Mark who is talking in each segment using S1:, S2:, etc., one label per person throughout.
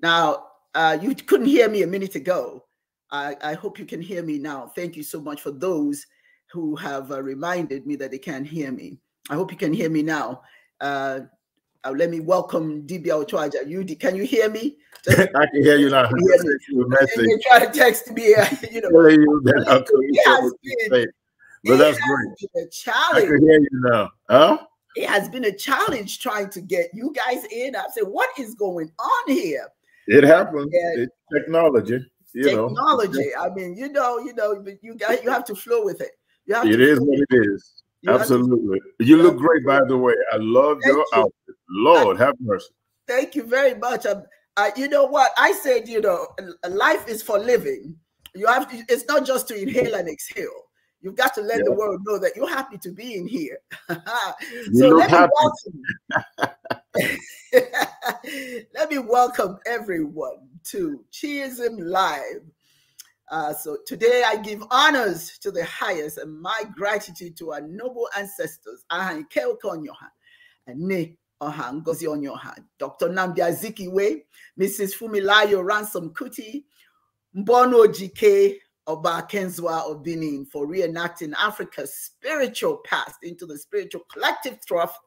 S1: Now, uh, you couldn't hear me a minute ago. I, I, hope you can hear me now. Thank you so much for those who have uh, reminded me that they can not hear me. I hope you can hear me now. Uh, let me welcome DBL Ochoaja. You can you hear me?
S2: Just, I can hear you now. Hear you try to
S1: text me, you know.
S2: you that it been, but that's great.
S1: a challenge. I can
S2: hear you now. Huh?
S1: It has been a challenge trying to get you guys in. I said, what is going on here?
S2: It happens. It's technology. You technology. Know.
S1: I mean, you know, you know, but you got you have to flow with it. You have it is what
S2: it is. You Absolutely. You look great, by the way. I love your you. outfit. Lord, I, have mercy.
S1: Thank you very much. I, you know what? I said, you know, life is for living. You have to, it's not just to inhale and exhale. You've got to let yeah. the world know that you're happy to be in here. so let me, welcome, Let me welcome everyone to Cheerism Live. Uh, so today I give honors to the highest and my gratitude to our noble ancestors, Ahanke Okonyoha, Ne Oha Ngozi Dr. Namdi Azikiwe, Mrs. Fumilayo Ransom Kuti, Mbono G K Oba Kenzwa of Benin for reenacting Africa's spiritual past into the spiritual collective trough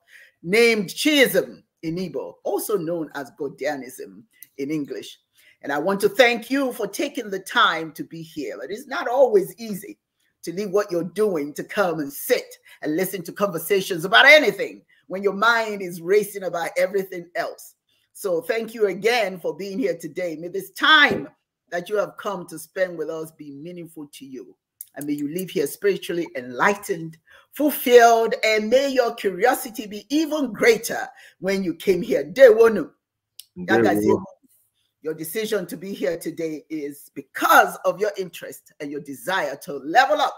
S1: named Chism in Igbo, also known as Godianism in English. And I want to thank you for taking the time to be here. It is not always easy to leave what you're doing to come and sit and listen to conversations about anything when your mind is racing about everything else. So thank you again for being here today. May this time that you have come to spend with us be meaningful to you. And may you live here spiritually enlightened, fulfilled, and may your curiosity be even greater when you came here. Day one. Your decision to be here today is because of your interest and your desire to level up.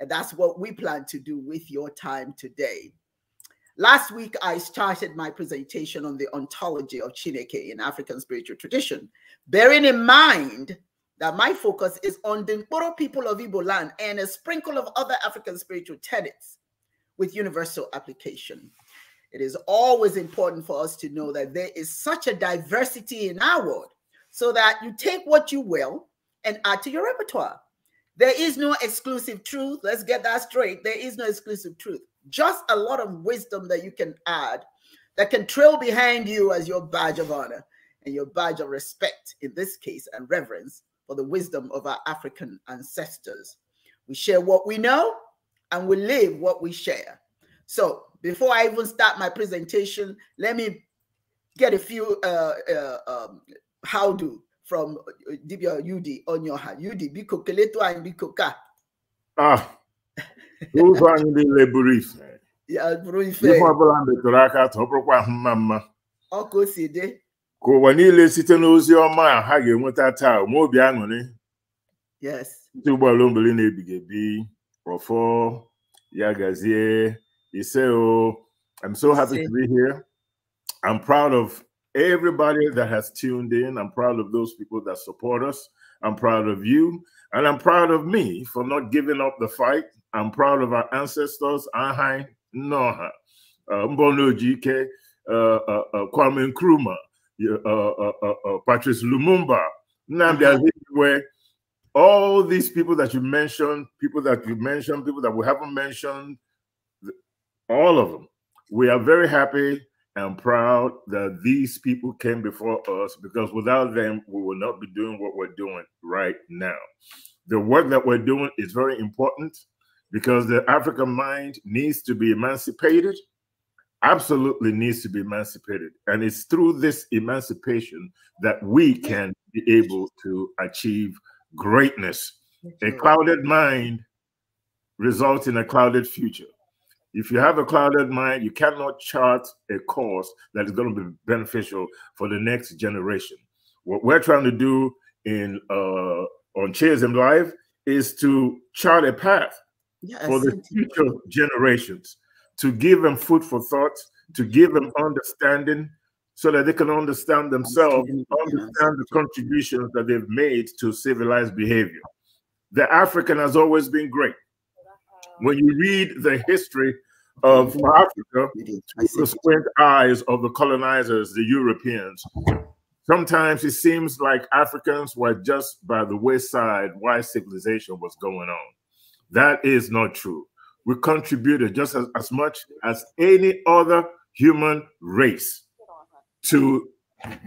S1: And that's what we plan to do with your time today. Last week, I started my presentation on the ontology of Chineke in African spiritual tradition, bearing in mind that my focus is on the Nkoro people of Igbo land and a sprinkle of other African spiritual tenets with universal application. It is always important for us to know that there is such a diversity in our world so that you take what you will and add to your repertoire. There is no exclusive truth. Let's get that straight. There is no exclusive truth. Just a lot of wisdom that you can add that can trail behind you as your badge of honor and your badge of respect in this case and reverence for the wisdom of our African ancestors. We share what we know and we live what we share. So before I even start my presentation, let me get a few uh, uh, um, how do from uh, Dibia Udi on your hand. Udi, biko keleto and biko ka.
S2: Ah, who's anyị niile buru ife.
S1: Ya buru ife. Ife ọbụla
S2: metụrụ aka atọ, ọ bụrụkwa ahụ mma mma. Ọ ka o si ka ụwa niile site n'ozi ọma a ha ga-enweta taa onwe obi aṅụrị ndị ụgbọala obili na-ebighị ebi ọfọ ya gazie ise o I'm so happy to be here I'm proud of everybody that has tuned in I'm proud of those people that support us I'm proud of you and I'm proud of me for not giving up the fight I'm proud of our ancestors Ahai Nnoha uh, Mbonoji Ike uh, uh, Kwame Nkrumah uh, uh, uh, Patrice Lumumba, Nnamdi uh-huh. Azikiwe, all these people that you mentioned, people that you mentioned, people that we haven't mentioned, all of them. We are very happy and proud that these people came before us because without them, we will not be doing what we're doing right now. The work that we're doing is very important because the African mind needs to be emancipated absolutely needs to be emancipated. And it's through this emancipation that we can be able to achieve greatness. A clouded mind results in a clouded future. If you have a clouded mind, you cannot chart a course that is going to be beneficial for the next generation. What we're trying to do in uh, on Cheers in Life is to chart a path yes. for the future generations to give them food for thought, to give them understanding so that they can understand themselves, understand the contributions that they've made to civilized behavior. The African has always been great. When you read the history of Africa through the squint eyes of the colonizers, the Europeans, sometimes it seems like Africans were just by the wayside while civilization was going on. That is not true we contributed just as, as much as any other human race to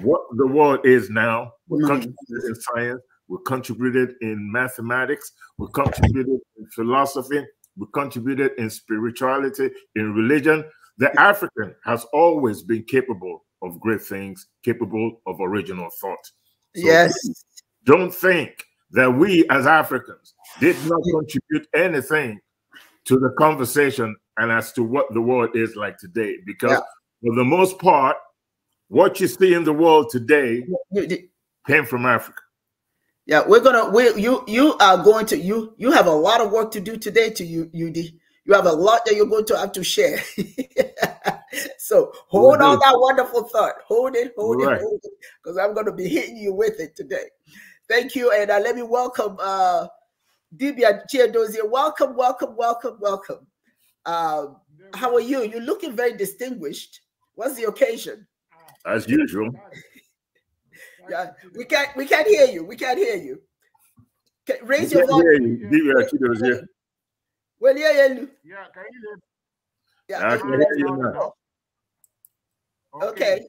S2: what the world is now. We contributed in science, we contributed in mathematics, we contributed in philosophy, we contributed in spirituality, in religion. The African has always been capable of great things, capable of original thought. So yes. Don't think that we as Africans did not contribute anything to the conversation and as to what the world is like today. Because yeah. for the most part, what you see in the world today
S1: came from Africa. Yeah, we're gonna we you you are going to you you have a lot of work to do today to you UD. You have a lot that you're going to have to share. so hold on that wonderful thought. Hold it, hold right. it, hold it, because I'm gonna be hitting you with it today. Thank you, and uh, let me welcome uh Dibia Chiedozie, welcome, welcome, welcome, welcome. Uh, how are you? You're looking very distinguished. What's the occasion?
S2: As usual.
S1: yeah, we can't we can't hear you. We can't hear you. Can, raise your
S2: volume. Dibia
S1: Well, yeah, yeah. Yeah, can you Yeah, I can hear you now.
S3: Okay.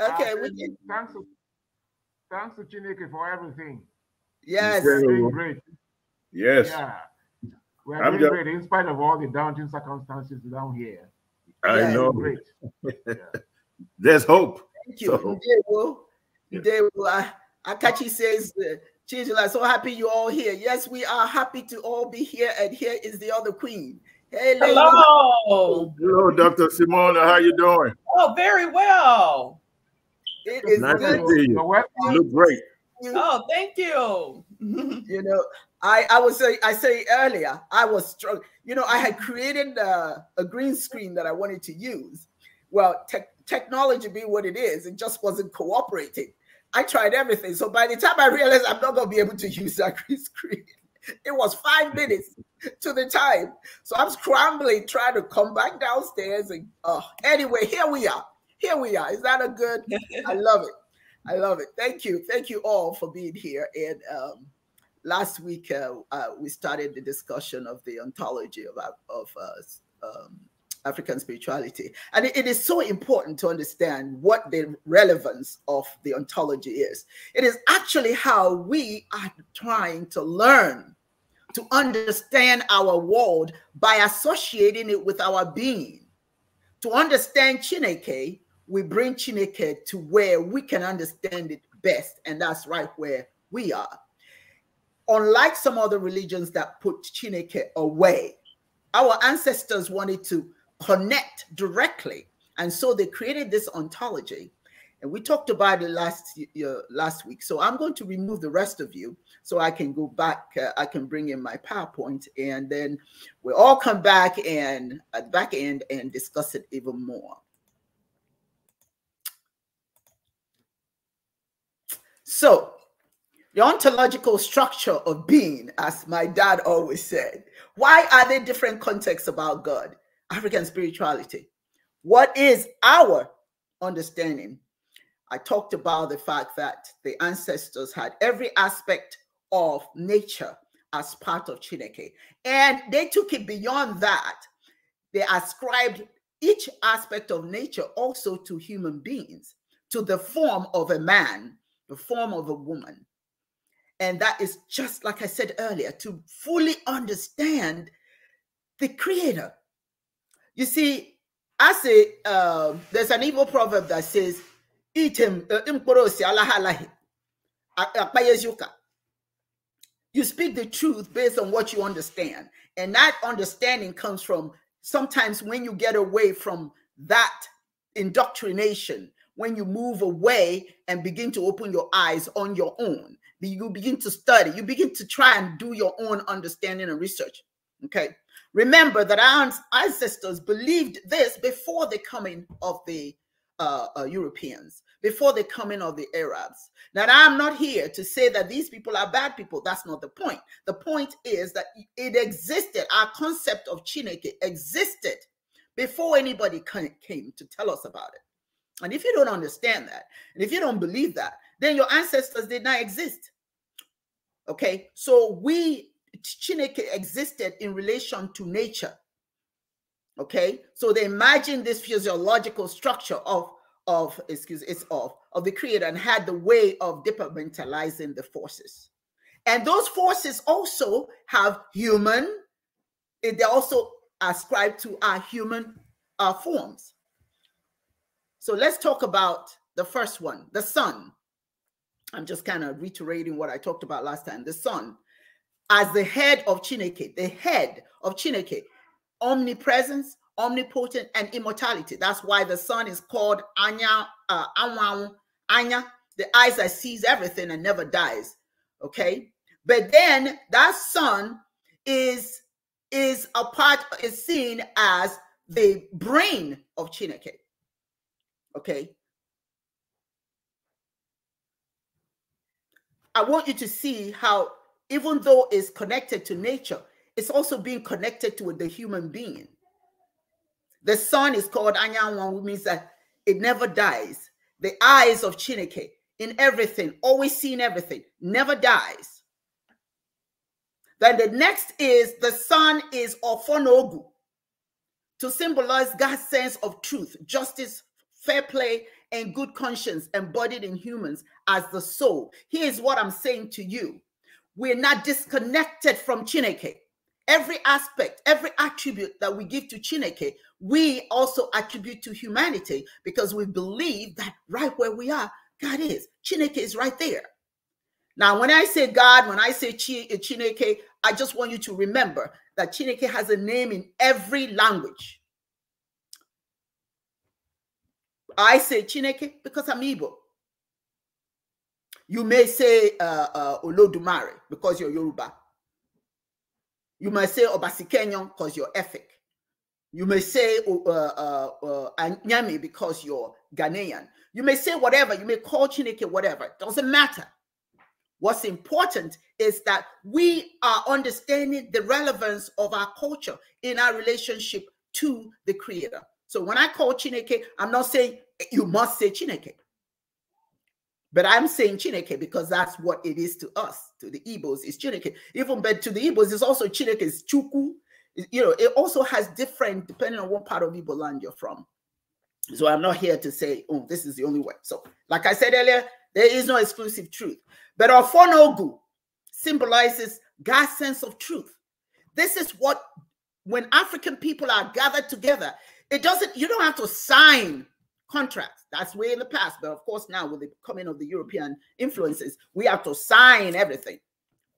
S3: Okay. Ah, we can. Thanks, thanks to Chineke for everything. Yes. Great. Yes. Yeah. We are doing just... great in spite of all the daunting circumstances down here.
S4: I
S2: yeah, know. Great. yeah. There's hope. Thank you. So. Did,
S1: Will. You did, Will. I, Akachi says, uh, Chinchilla, so happy you all here. Yes, we are happy to all be here. And here is the other queen. Hello.
S2: Hello, Dr. Simona. How you doing?
S5: Oh, very well. It is nice good. to see you. you look great. Oh, thank you. you know, I, I was I
S1: say earlier I was strong. You know I had created a, uh, a green screen that I wanted to use. Well, te technology be what it is, it just wasn't cooperating. I tried everything. So by the time I realized I'm not going to be able to use that green screen, it was five mm-hmm. minutes to the time. So I'm scrambling, trying to come back downstairs. And uh, anyway, here we are. Here we are. Is that a good? I love it. I love it. Thank you. Thank you all for being here. And um, last week uh, uh, we started the discussion of the ontology of, of uh, um, African spirituality. And it, it is so important to understand what the relevance of the ontology is. It is actually how we are trying to learn to understand our world by associating it with our being. To understand Chineke, we bring Chineke to where we can understand it best, and that's right where we are unlike some other religions that put Chineke away, our ancestors wanted to connect directly. And so they created this ontology. And we talked about it last uh, last week. So I'm going to remove the rest of you so I can go back. Uh, I can bring in my PowerPoint and then we'll all come back and at uh, the back end and discuss it even more. So the ontological structure of being, as my dad always said. Why are there different contexts about God? African spirituality. What is our understanding? I talked about the fact that the ancestors had every aspect of nature as part of Chineke, and they took it beyond that. They ascribed each aspect of nature also to human beings, to the form of a man, the form of a woman, and that is just like I said earlier to fully understand the creator. You see, I say, uh, there's an evil proverb that says, Eat him, uh, you speak the truth based on what you understand. And that understanding comes from sometimes when you get away from that indoctrination, when you move away and begin to open your eyes on your own you begin to study, you begin to try and do your own understanding and research. Okay. Remember that our ancestors believed this before the coming of the uh, uh, Europeans, before the coming of the Arabs. That I'm not here to say that these people are bad people. That's not the point. The point is that it existed, our concept of Chineke existed before anybody came to tell us about it. And if you don't understand that, and if you don't believe that, then your ancestors did not exist. Okay, so we Chineke existed in relation to nature. Okay, so they imagined this physiological structure of of excuse it's of of the creator and had the way of departmentalizing the forces. And those forces also have human, eh, they also ascribe to our human uh, forms. So let's talk about the first one, the sun. I'm just kind of reiterating what I talked about last time. The Son, as the head of Chineke, the head of Chineke, omnipresence, omnipotent, and immortality. That's why the Son is called Anya, uh, Anwang, Anya, the eyes that sees everything and never dies. Okay, but then that Son is is a part is seen as the brain of Chineke. Okay, I want you to see how, even though it's connected to nature, it's also being connected to the human being. The sun is called Anyanwan, which means that it never dies. The eyes of Chineke in everything, always seeing everything, never dies. Then the next is the sun is Ofonogu to symbolize God's sense of truth, justice, fair play, and good conscience embodied in humans as the soul. Here's what I'm saying to you we're not disconnected from Chineke. Every aspect, every attribute that we give to Chineke, we also attribute to humanity because we believe that right where we are, God is. Chineke is right there. Now, when I say God, when I say uh, Chineke, I just want you to remember that Chineke has a name in every language. I say Chineke because I'm Igbo. You may say uh, uh, Olodumare because you're Yoruba. You might say Obasikenyon because you're Efik. You may say uh, uh, uh, Anyami because you're Ghanaian. You may say whatever. You may call Chineke whatever. It doesn't matter. What's important is that we are understanding the relevance of our culture in our relationship to the Creator. So when I call Chineke, I'm not saying eh, you must say Chineke. But I'm saying Chineke because that's what it is to us, to the Igbos, is Chineke. Even but to the Igbos, it's also Chineke, it's Chuku. You know, it also has different depending on what part of Igbo land you're from. So I'm not here to say, oh, this is the only way. So, like I said earlier, there is no exclusive truth. But Ofonogu symbolizes God's sense of truth. This is what, when African people are gathered together, it doesn't, you don't have to sign contracts. That's way in the past. But of course, now with the coming of the European influences, we have to sign everything.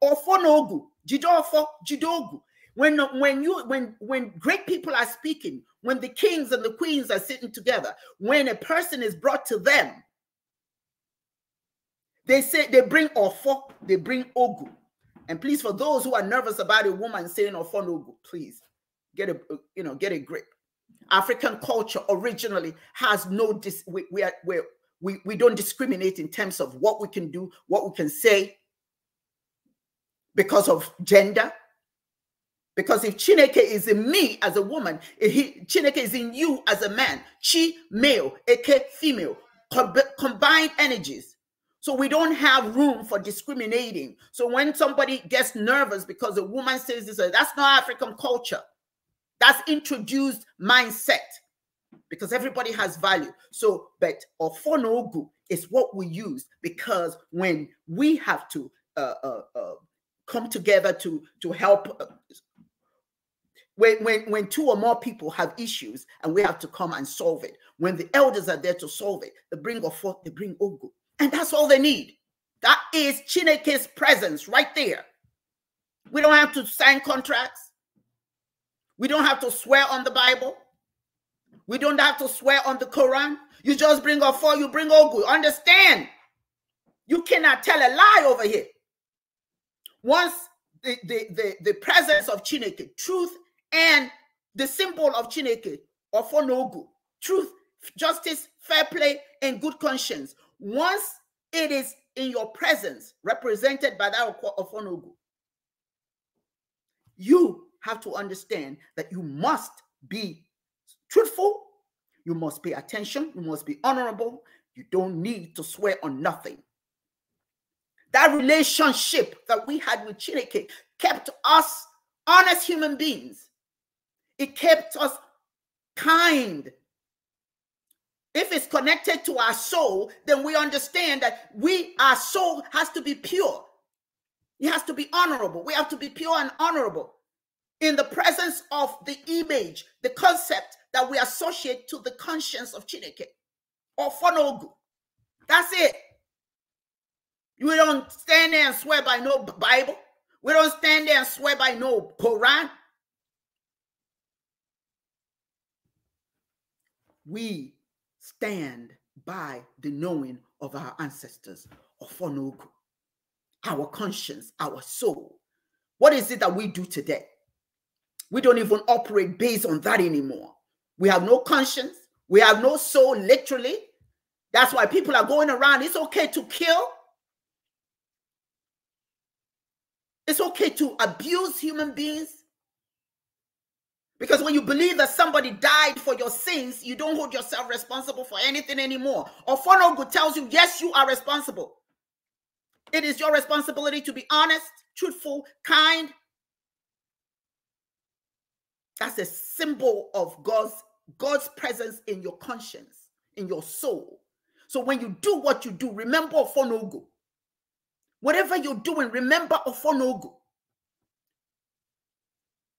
S1: Ofonogu, Jidofo, Jidogu. When when you when when great people are speaking, when the kings and the queens are sitting together, when a person is brought to them, they say they bring ofo, they bring ogu. And please, for those who are nervous about a woman saying ofo no please get a you know get a grip. African culture originally has no dis we we, are, we we don't discriminate in terms of what we can do, what we can say because of gender. Because if Chineke is in me as a woman, he, Chineke is in you as a man, chi male, aka female, combined energies. So we don't have room for discriminating. So when somebody gets nervous because a woman says this, that's not African culture. That's introduced mindset because everybody has value. So, but ofonogu is what we use because when we have to uh, uh, uh, come together to to help uh, when, when, when two or more people have issues and we have to come and solve it, when the elders are there to solve it, they bring forth, they bring Ogu. And that's all they need. That is Chineke's presence right there. We don't have to sign contracts. We don't have to swear on the Bible. We don't have to swear on the Quran. You just bring all four, you bring all good. Understand? You cannot tell a lie over here. Once the, the, the, the presence of Chineke, truth, and the symbol of Chineke, or for no good, truth, justice, fair play, and good conscience. Once it is in your presence, represented by that of Ofonogu, you have to understand that you must be truthful, you must pay attention, you must be honorable. You don't need to swear on nothing. That relationship that we had with Chineke kept us honest human beings. It kept us kind. If it's connected to our soul, then we understand that we, our soul has to be pure. It has to be honorable. We have to be pure and honorable in the presence of the image, the concept that we associate to the conscience of Chineke or Fonogu. That's it. We don't stand there and swear by no Bible. We don't stand there and swear by no Quran. We stand by the knowing of our ancestors, of Fonogu, our conscience, our soul. What is it that we do today? We don't even operate based on that anymore. We have no conscience. We have no soul, literally. That's why people are going around. It's okay to kill. It's okay to abuse human beings. Because when you believe that somebody died for your sins, you don't hold yourself responsible for anything anymore. Ofonogu tells you, yes, you are responsible. It is your responsibility to be honest, truthful, kind, that's a symbol of God's God's presence in your conscience, in your soul. So when you do what you do, remember Ofonogo. Whatever you're doing, remember Ofonogo.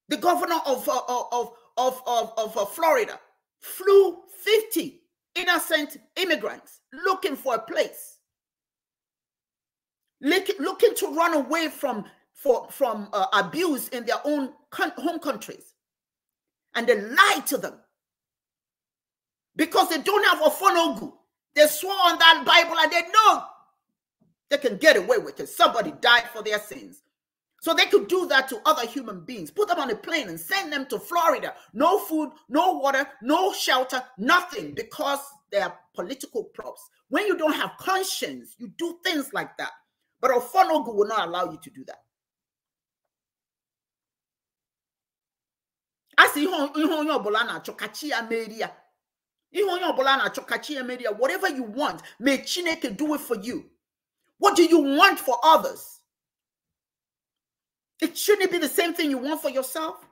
S1: The governor of, uh, uh, of, of, of, of uh, Florida flew 50 innocent immigrants looking for a place, looking to run away from, for, from uh, abuse in their own home countries and they lied to them because they don't have Ofonogu. They swore on that Bible and they know they can get away with it. Somebody died for their sins. So they could do that to other human beings, put them on a plane and send them to Florida. No food, no water, no shelter, nothing because they are political props. When you don't have conscience, you do things like that. But Ofonogu will not allow you to do that. As sị ihe onye ọbụla na-achọ kachi ya whatever you want may chineke do it for you what do you want for others it shouldn't be the same thing you want for yourself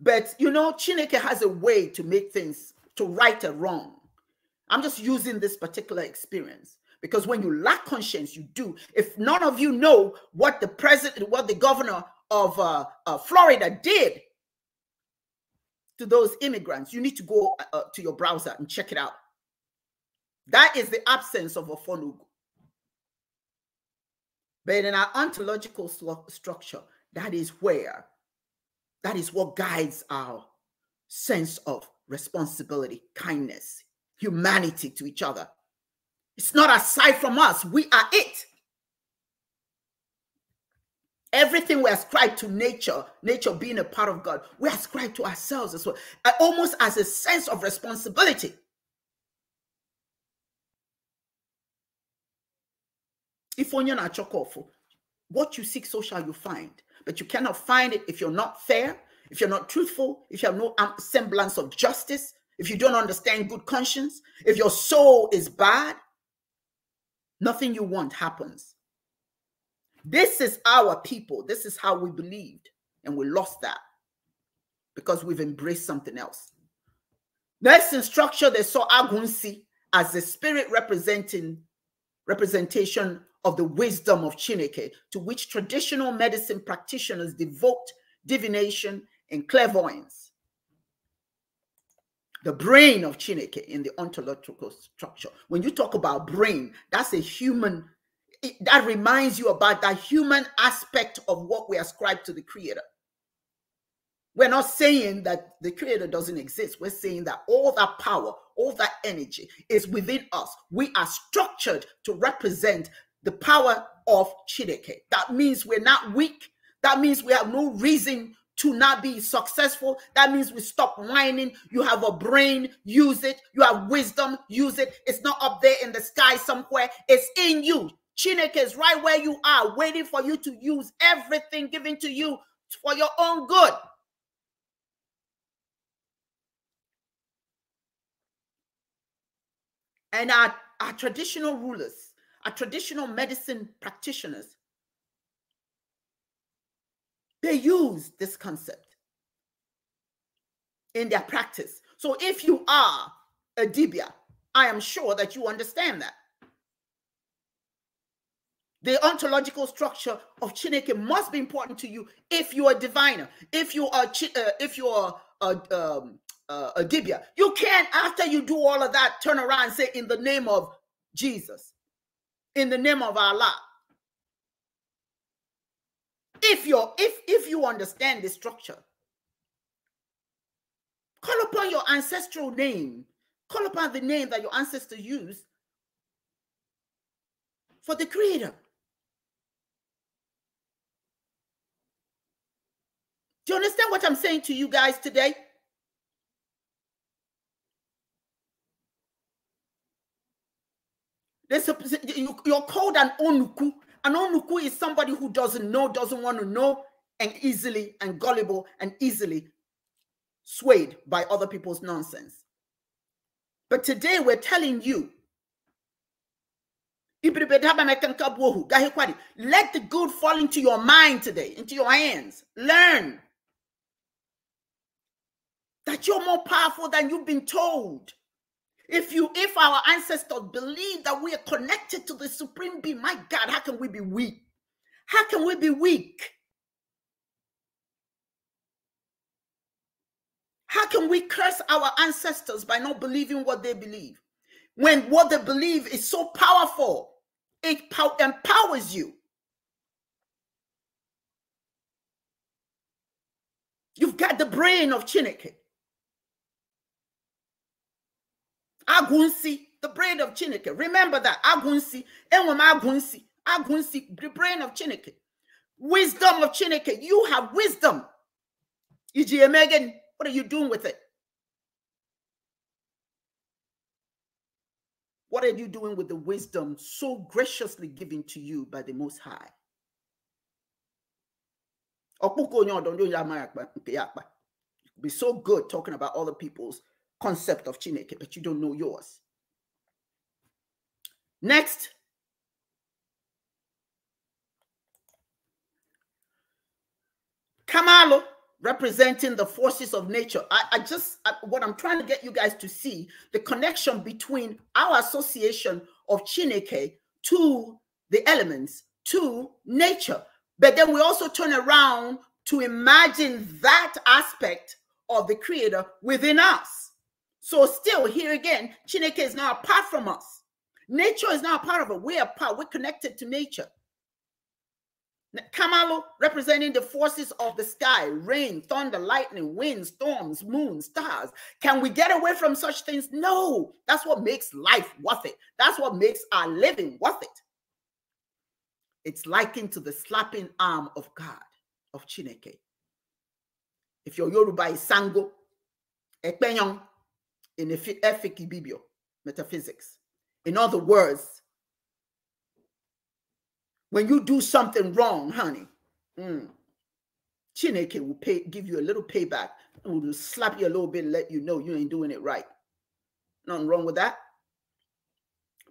S1: but you know chineke has a way to make things to right or wrong i'm just using this particular experience because when you lack conscience you do if none of you know what the president what the governor of uh, uh, Florida did to those immigrants. You need to go uh, uh to your browser and check it out. That is the absence of a fonugu. But in our ontological structure, that is where, that is what guides our sense of responsibility, kindness, humanity to each other. It's not aside from us, we are it. Everything we ascribe to nature, nature being a part of God, we ascribe to ourselves as well, uh, almost as a sense of responsibility. If only not chocolate, what you seek, so shall you find. But you cannot find it if you're not fair, if you're not truthful, if you have no semblance of justice, if you don't understand good conscience, if your soul is bad, nothing you want happens. This is our people. This is how we believed. And we lost that because we've embraced something else. Next in structure, they saw Agunsi as the spirit representing representation of the wisdom of Chineke, to which traditional medicine practitioners devote divination and clairvoyance. The brain of Chineke in the ontological structure. When you talk about brain, that's a human it, that reminds you about that human aspect of what we ascribe to the creator. We're not saying that the creator doesn't exist. We're saying that all that power, all that energy is within us. We are structured to represent the power of Chideke. That means we're not weak. That means we have no reason to not be successful. That means we stop whining. You have a brain, use it. You have wisdom, use it. It's not up there in the sky somewhere, it's in you. Chineke is right where you are, waiting for you to use everything given to you for your own good. And our, our traditional rulers, our traditional medicine practitioners, they use this concept in their practice. So if you are a dibia, I am sure that you understand that. The ontological structure of Chineke must be important to you if you are a diviner, if you are uh, if you are a, um, a dibia. You can't, after you do all of that, turn around and say, in the name of Jesus, in the name of Allah. If you're if if you understand the structure, call upon your ancestral name, call upon the name that your ancestors used for the creator. you understand what I'm saying to you guys today? There's a, you're called an onuku. An onuku is somebody who doesn't know, doesn't want to know, and easily and gullible and easily swayed by other people's nonsense. But today we're telling you let the good fall into your mind today, into your hands. Learn that you're more powerful than you've been told. If you if our ancestors believe that we are connected to the supreme being, my God, how can we be weak? How can we be weak? How can we curse our ancestors by not believing what they believe? When what they believe is so powerful, it empowers you. You've got the brain of Chineke. Agunsi, the brain of Chineke. Remember that. Agunsi, Enwem Agunsi, Agunsi, the brain of Chineke. Wisdom of Chineke. You have wisdom. E.G. Megan, what are you doing with it? What are you doing with the wisdom so graciously given to you by the Most High? Be so good talking about other people's concept of Chineke, but you don't know yours. Next. Kamalo representing the forces of nature. I, I just, I, what I'm trying to get you guys to see the connection between our association of Chineke to the elements, to nature. But then we also turn around to imagine that aspect of the creator within us. So still here again, Chineke is now apart from us. Nature is now part of it. We're part. We're connected to nature. Kamalo representing the forces of the sky, rain, thunder, lightning, winds, storms, moon, stars. Can we get away from such things? No. That's what makes life worth it. That's what makes our living worth it. It's likened to the slapping arm of God, of Chineke. If your Yoruba is Sango, Ekpenyong, in Efik Bibio, metaphysics. In other words, when you do something wrong, honey, mm, Chineke will pay, give you a little payback and will slap you a little bit and let you know you ain't doing it right. Nothing wrong with that.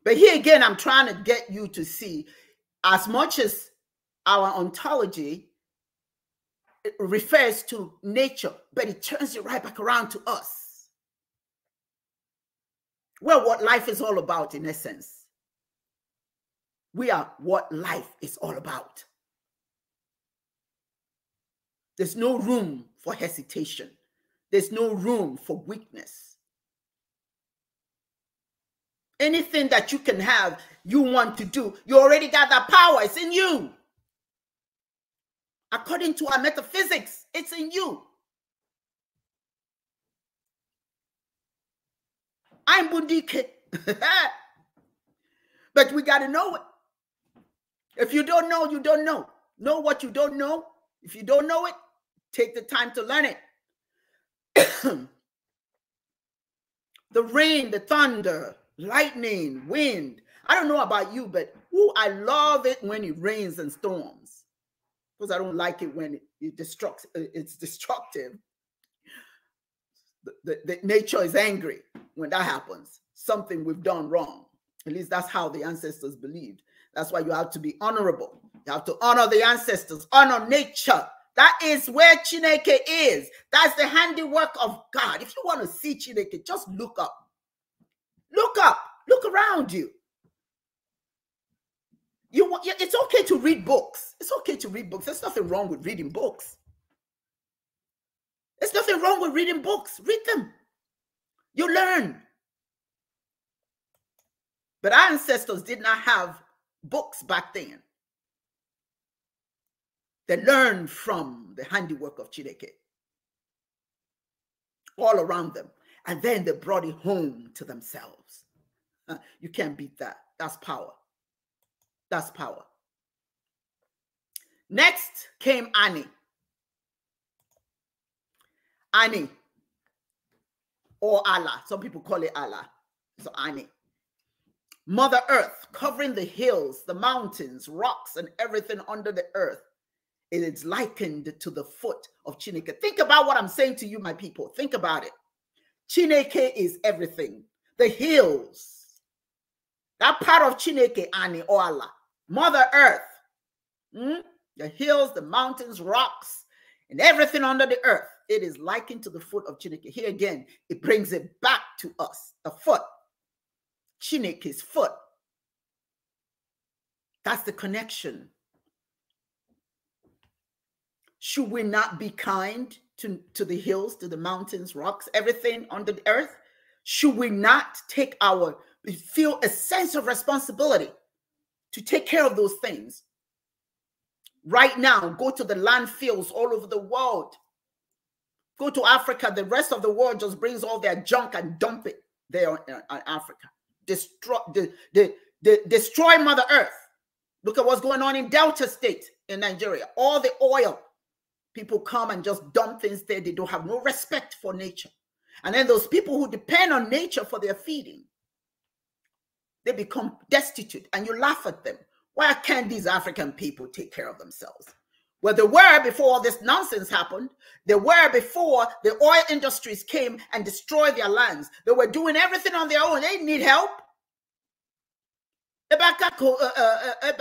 S1: But here again, I'm trying to get you to see as much as our ontology refers to nature, but it turns it right back around to us. Well, what life is all about, in essence. We are what life is all about. There's no room for hesitation, there's no room for weakness. Anything that you can have, you want to do, you already got that power, it's in you. According to our metaphysics, it's in you. I'm Bundike. but we got to know it. If you don't know, you don't know. Know what you don't know. If you don't know it, take the time to learn it. the rain, the thunder, lightning, wind. I don't know about you, but ooh, I love it when it rains and storms because I don't like it when it, it destructs, it's destructive that nature is angry when that happens. Something we've done wrong. At least that's how the ancestors believed. That's why you have to be honorable. You have to honor the ancestors, honor nature. That is where Chineke is. That's the handiwork of God. If you want to see Chineke, just look up. Look up. Look around you. You, it's okay to read books. It's okay to read books. There's nothing wrong with reading books. There's nothing wrong with reading books. Read them. You learn. But our ancestors did not have books back then. They learned from the handiwork of Chineke all around them. And then they brought it home to themselves. You can't beat that. That's power. That's power. Next came Annie. Ani or Allah. Some people call it Allah. So Ani. Mother Earth covering the hills, the mountains, rocks, and everything under the earth. It is likened to the foot of Chineke. Think about what I'm saying to you, my people. Think about it. Chineke is everything. The hills, that part of Chineke, Ani or Allah, Mother Earth, mm? the hills, the mountains, rocks, and everything under the earth it is likened to the foot of Chineke. Here again, it brings it back to us the foot, Chineke's foot. That's the connection. Should we not be kind to, to the hills, to the mountains, rocks, everything on the earth? Should we not take our, feel a sense of responsibility to take care of those things? Right now, go to the landfills all over the world Go to Africa, the rest of the world just brings all their junk and dump it there on, uh, Africa. Destroy the, the, the destroy Mother Earth. Look at what's going on in Delta State in Nigeria. All the oil people come and just dump things there. They don't have no respect for nature. And then those people who depend on nature for their feeding, they become destitute and you laugh at them. Why can't these African people take care of themselves? Well, they were before all this nonsense happened. They were before the oil industries came and destroyed their lands. They were doing everything on their own. They didn't need help. Eh, eh, eh,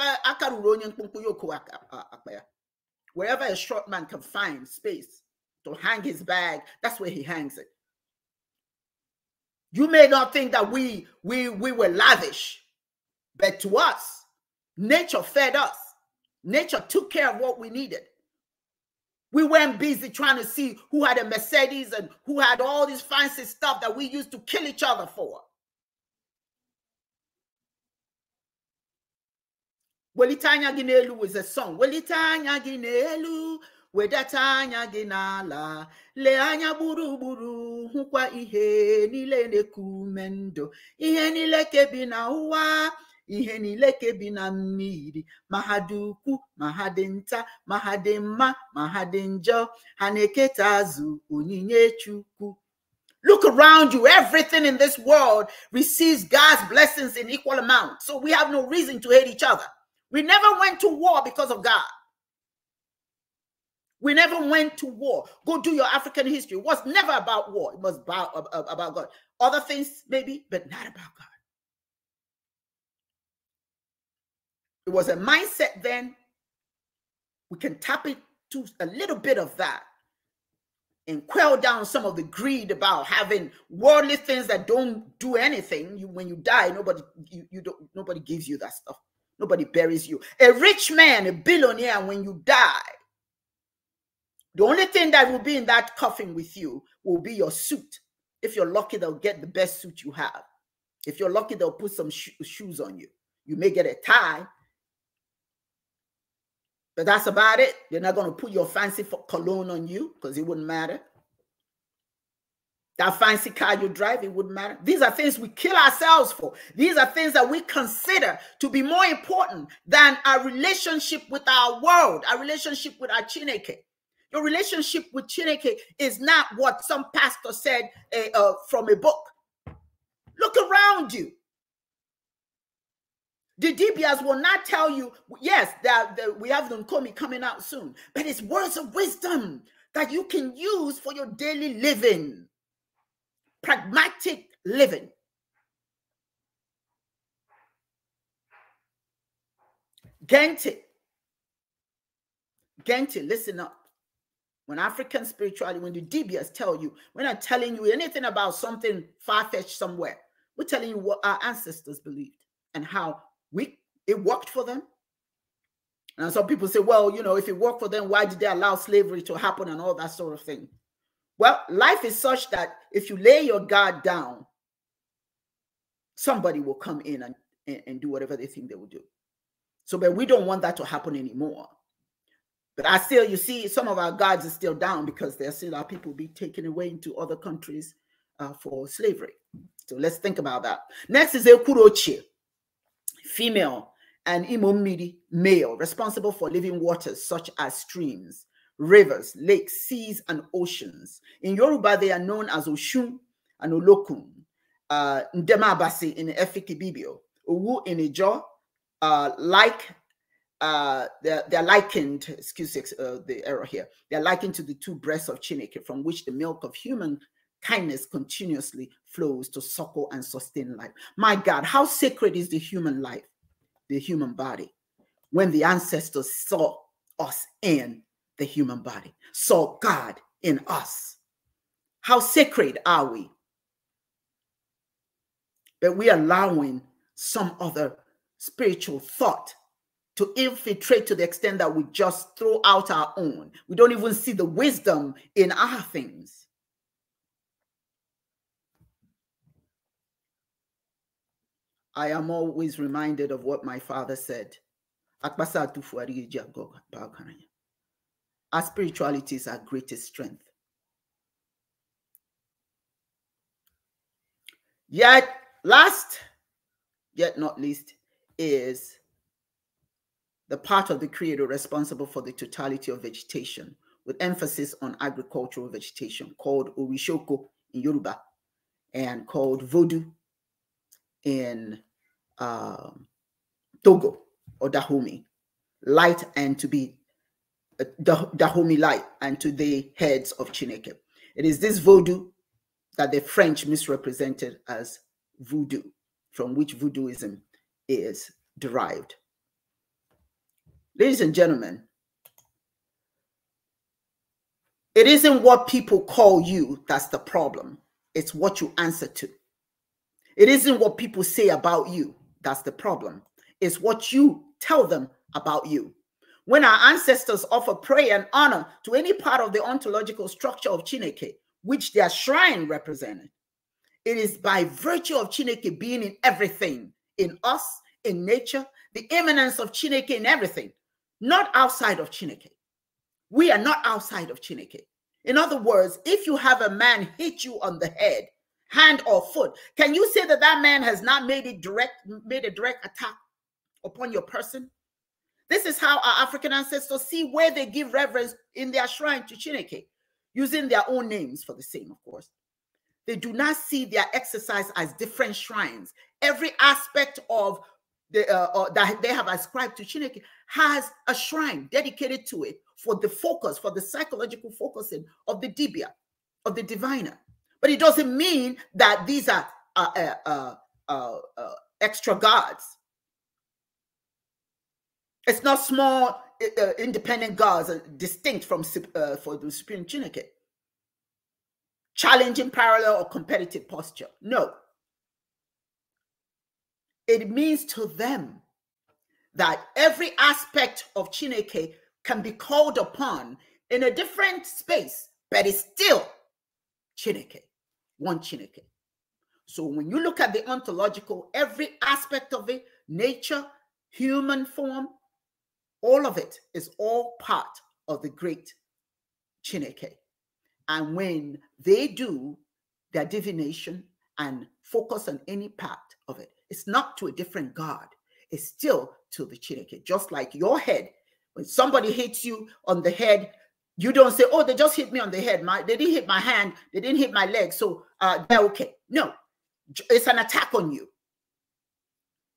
S1: Wherever a short man can find space to hang his bag, that's where he hangs it. You may not think that we we we were lavish, but to us, nature fed us. Nature took care of what we needed. We weren't busy trying to see who had a Mercedes and who had all this fancy stuff that we used to kill each other for. Welitanya Ginelu is a song. Welitanya Ginelu, wedatanya gị n'ala lee anya gburugburu hụkwa ihe niile kumendo ihe niile kebi na ihe niile ka bi na mmiri ma ha dị ukwu ma ha dị nta ma ha dị mma ma ha dị njọ ha na-eketa azụ onyinye chukwu Look around you. Everything in this world receives God's blessings in equal amount. So we have no reason to hate each other. We never went to war because of God. We never went to war. Go do your African history. It was never about war. It was about, about God. Other things, maybe, but not about God. It was a mindset then. We can tap into a little bit of that and quell down some of the greed about having worldly things that don't do anything. You, when you die, nobody you, you don't nobody gives you that stuff. Nobody buries you. A rich man, a billionaire, when you die, the only thing that will be in that coffin with you will be your suit. If you're lucky, they'll get the best suit you have. If you're lucky, they'll put some shoes on you. You may get a tie. But that's about it. You're not going to put your fancy cologne on you because it wouldn't matter. That fancy car you drive, it wouldn't matter. These are things we kill ourselves for. These are things that we consider to be more important than our relationship with our world, our relationship with our Chineke. Your relationship with Chineke is not what some pastor said uh, uh, from a book. Look around you. The DBS will not tell you, yes, that, that we have Nkomi coming out soon, but it's words of wisdom that you can use for your daily living, pragmatic living. Gente, Gente, listen up. When African spirituality, when the DBS tell you, we're not telling you anything about something far fetched somewhere. We're telling you what our ancestors believed and how we it worked for them. And some people say, well, you know, if it worked for them, why did they allow slavery to happen and all that sort of thing? Well, life is such that if you lay your guard down, somebody will come in and, and, and do whatever they think they will do. So, but we don't want that to happen anymore. But I still, you see, some of our guards are still down because there still our people be taken away into other countries uh, for slavery. So let's think about that. Next is kurochi female, and Imomidi male, responsible for living waters such as streams, rivers, lakes, seas, and oceans. In Yoruba, they are known as Oshun and Olokun, uh, Ndemabasi in Efikibibio, Owu in Ijo, uh, like uh, they're, they're, likened, excuse uh, the error here, they're likened to the two breasts of Chineke, from which the milk of human kindness continuously flows to suckle and sustain life. My God, how sacred is the human life, the human body, when the ancestors saw us in the human body, saw God in us. How sacred are we? But we're allowing some other spiritual thought to infiltrate to the extent that we just throw out our own. We don't even see the wisdom in our things. I am always reminded of what my father said. Our spirituality is our greatest strength. Yet, last, yet not least, is the part of the creator responsible for the totality of vegetation, with emphasis on agricultural vegetation, called Orishoko in Yoruba and called Voodoo in um, Togo or Dahomey, light and to be uh, Dahomey light and to the heads of Chineke. It is this voodoo that the French misrepresented as voodoo, from which voodooism is derived. Ladies and gentlemen, it isn't what people call you that's the problem, it's what you answer to. It isn't what people say about you that's the problem, it's what you tell them about you. When our ancestors offer prayer and honor to any part of the ontological structure of Chineke, which their shrine represented, it is by virtue of Chineke being in everything, in us, in nature, the immanence of Chineke in everything, not outside of Chineke. We are not outside of Chineke. In other words, if you have a man hit you on the head hand or foot. Can you say that that man has not made it direct, made a direct attack upon your person? This is how our African ancestors see where they give reverence in their shrine to Chineke, using their own names for the same, of course. They do not see their exercise as different shrines. Every aspect of the, uh, uh that they have ascribed to Chineke has a shrine dedicated to it for the focus, for the psychological focusing of the dibia, of the diviner. But it doesn't mean that these are uh, uh, uh, uh, uh extra gods. It's not small uh, independent gods distinct from for the supreme Chineke. Challenging parallel or competitive posture. No. It means to them that every aspect of Chineke can be called upon in a different space, but it's still Chineke one Chineke. So when you look at the ontological, every aspect of it, nature, human form, all of it is all part of the great Chineke. And when they do their divination and focus on any part of it, it's not to a different God. It's still to the Chineke. Just like your head, when somebody hits you on the head, you don't say, "Oh, they just hit me on the head. My, they didn't hit my hand. They didn't hit my leg." So uh, okay. No, it's an attack on you.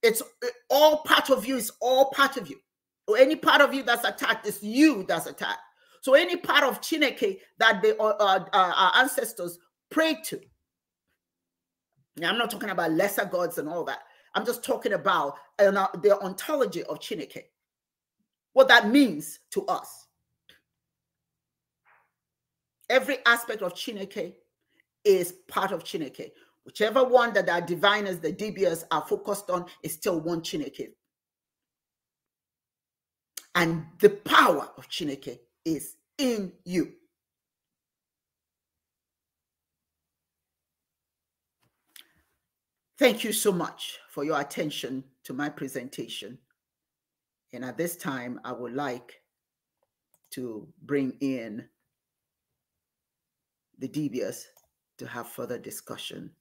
S1: It's uh, all part of you. It's all part of you. Any part of you that's attacked is you that's attacked. So any part of Chineke that the uh, uh, uh, our ancestors prayed to. Now, I'm not talking about lesser gods and all that. I'm just talking about uh, the ontology of Chineke, what that means to us. Every aspect of Chineke is part of Chineke. Whichever one that our diviners, the DBS are focused on is still one Chineke. And the power of Chineke is in you. Thank you so much for your attention to my presentation. And at this time, I would like to bring in the DBS to have further discussion.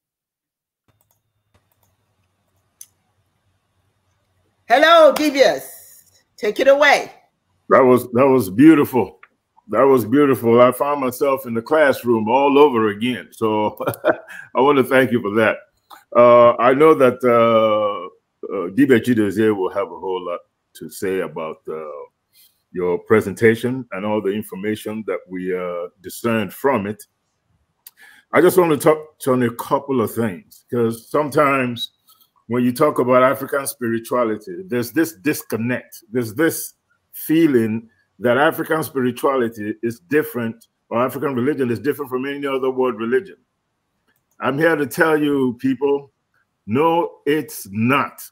S1: Hello, Devious. Take it away.
S2: That was that was beautiful. That was beautiful. I found myself in the classroom all over again. So I want to thank you for that. Uh, I know that uh, uh, will have a whole lot to say about uh, your presentation and all the information that we uh, discerned from it. I just want to touch on a couple of things because sometimes when you talk about African spirituality, there's this disconnect. There's this feeling that African spirituality is different or African religion is different from any other world religion. I'm here to tell you, people, no, it's not.